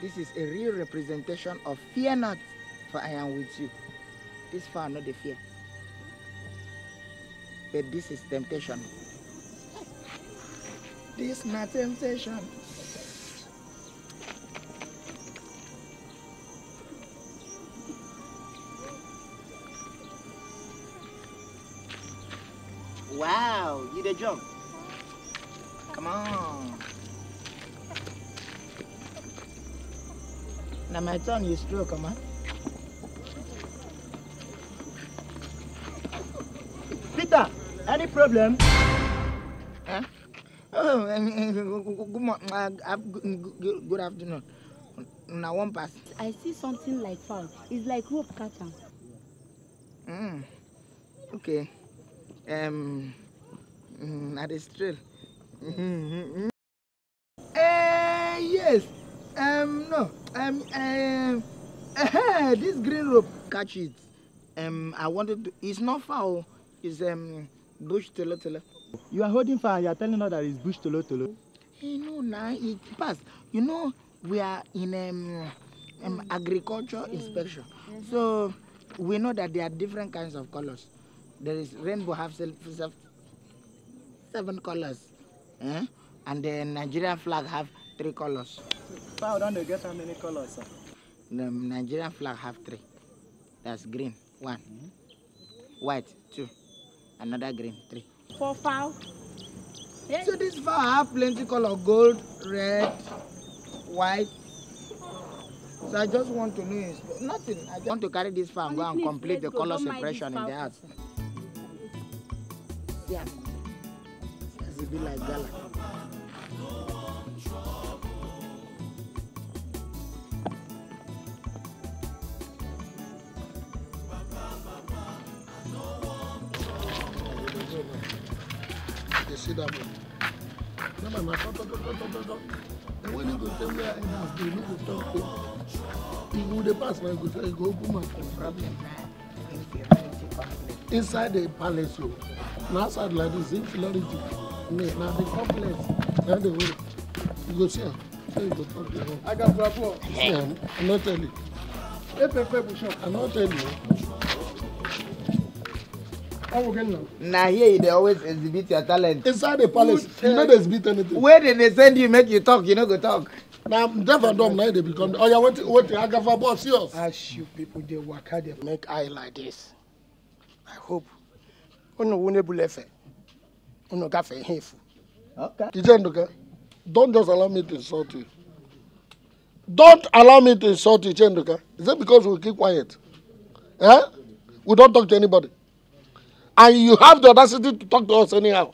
This is a real representation of fear not, for I am with you. This far not the fear. But this is temptation. This is my temptation. Wow, you did jump. Come on. Now my turn, you stroke, come on. Peter, any problem? Huh? Oh, [LAUGHS] uh, good, good afternoon. Now one pass. I see something like foul. It's like rope catcher. Mm. Okay um, na the trail. uh, yes, um, no, um, um. uh, this green rope, catch it. Um, I wanted to, it's not foul, oh. it's um, bush tolo tolo. You are holding fire, you are telling us that it's bush tolo tolo. You know, eh, now nah, it passed. You know, we are in um, um, agriculture mm. inspection, so we know that there are different kinds of colors there is rainbow have seven colors eh? and the Nigerian flag have three colors. Fowl don dey get how many colors? Sir? The Nigerian flag have three. That's green, one. Mm -hmm. White, two. Another green, three. Four fowl? Yeah. So this fowl have plenty color, gold, red, white. So I just want to know, nothing. I just want to carry this fowl and go and complete the color separation in the house yeah. As it be like gala. see that one? No, man, my talk, talk, talk, talk, talk. And when you go tell me I have been, you go talk to me. You go the pass, man, you go tell me, go open my phone. Problem, Thank you inside the palace o oh. Now outside like this inferiority me na the complex now the way you go see am so you go talk to her. agabrabu see am i no tell you. I'm bushọ. i no you. na here they always exhibit your talent. inside the palace you no exhibit anything. where dem dey send you make you talk you no go talk. Now, na deaf and dumb become. Oh, dey become What? I got agafa boss see us. as you people dey waka dey make eye like this. I hope. Unu wune bulefe. Unu gafe hefu. Okay. Ichenduke, don't just allow me to insult you. Don't allow me to insult you, Ichenduke. Is it because we keep quiet? Eh? We don't talk to anybody. And you have the audacity to talk to us anyhow.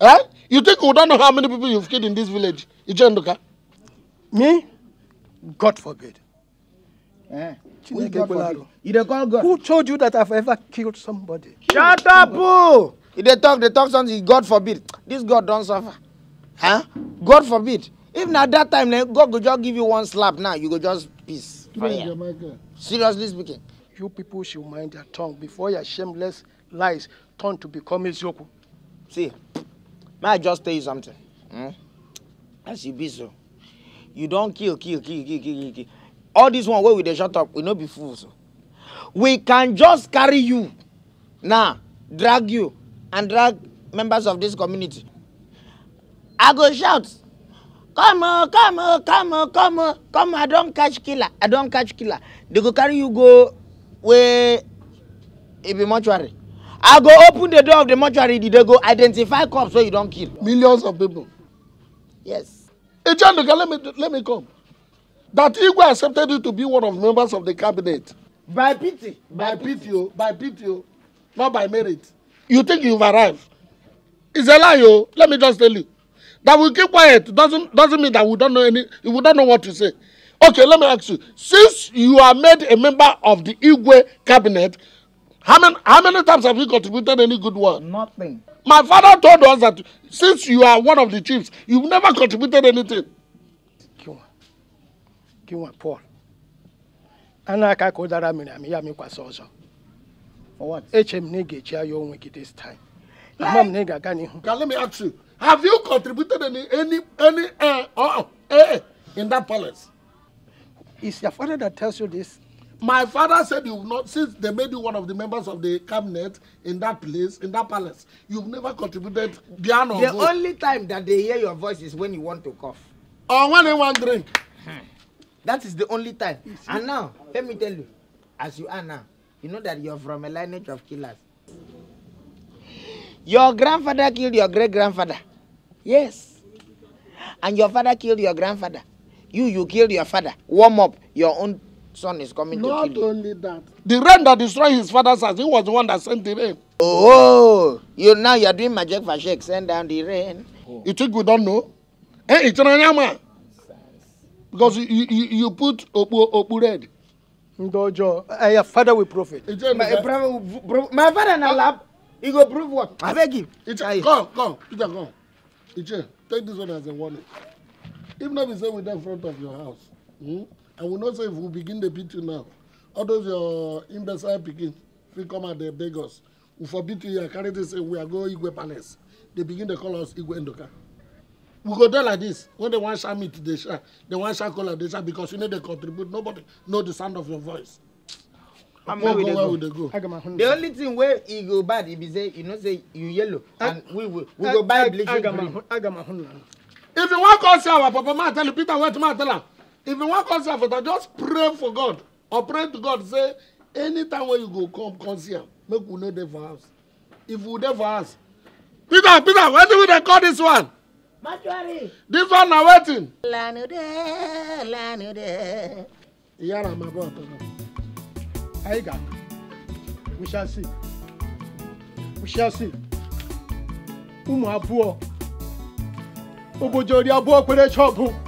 Eh? You think we don't know how many people you've killed in this village, Ichenduke? Me? God forbid. Eh. You don't call God. Who told you that I've ever killed somebody? Shut up, boo! If they talk, they talk something, God forbid. This God don't suffer. Huh? God forbid. Even at that time, then God go just give you one slap now, you go just peace. Seriously speaking. You people should mind your tongue before your shameless lies turn to become Ezioku. See, may I just tell you something? Hmm? As you be so, you don't kill, kill, kill, kill, kill, kill all dis one wey we dey shut up we no be fools we can just carry you now drag you and drag members of this community i go shout come on come on come on come on come on i don catch killer i don catch killer they go carry you go where? e be mortuary i go open the door of the mortuary they go identify corpse wey you don kill millions of people yes hey john let me let me come that Igwe accepted you to be one of the members of the cabinet. By pity. By, by pity, oh. By pity, oh. Not by merit. You think you've arrived. It's a lie, oh. Let me just tell you. That we keep quiet doesn't doesn't mean that we don't know any we don't know what to say. Okay, let me ask you. Since you are made a member of the Igwe cabinet, how many how many times have you contributed any good work? Nothing. My father told us that since you are one of the chiefs, you've never contributed anything kinwa Paul a na-aka ka ụdara miri amị ya mịkwasị ọzọ eche m na ị ga-echi aya onwe gị this time ama m na ị ga-aga n'ihu Have you contributed any any any uh, uh, uh, uh in that palace? It's your father that tells you this. My father said you've not since they made you one of the members of the cabinet in that place in that palace. You've never contributed beyond. The vote. only time that they hear your voice is when you want to cough. Or when they want drink. Hmm that is the only time and now let me tell you as you are now you know that you are from a lineage of killers your grandfather killed your great grandfather yes and your father killed your grandfather you you killed your father warm up your own son is coming not to kill you. Not only that. The rain that destroyed his father's house, he was the one that sent the rain. Oh, you now you are doing magic for shake, send down the rain. Oh. You think we don't know? Hey, it's an animal because you you, you put okpu okpu red. ndojo uh, your father will profit. my brother my father na lab he go prove what I beg him. iche come come peter come Ije. take this one as a warning if not, we say we dey front of your house hmm? i will not say if we begin the beating now all those your imbecile pikin We come at the beg we forbid you here carry this say we are going to igwe palace They begin to call us igwe endoka we go dey like this when they wan share meat they share they wan share cola, they share because you no dey contribute nobody know the sound of your voice. and where we dey go, go. go. the only thing wey e go bad e be say you know say you yellow and we we, we go buy bleaching cream. if you wan come see our papa ma tell you peter wait tomorrow? tell am if you wan come see our papa just pray for god or pray to god say anytime wey you go come come see am make we no dey for house if we dey for house peter peter wetin we dey call this one Mortuary. This one na wetin? Lanude, lanude. Yara ma bọ ọtọ náà. Anyị ga. We shall see. We shall see. Ụmụ abụọ. Obodo ori kwere chọọbụ.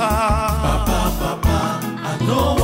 papa. Papa, papa, I know.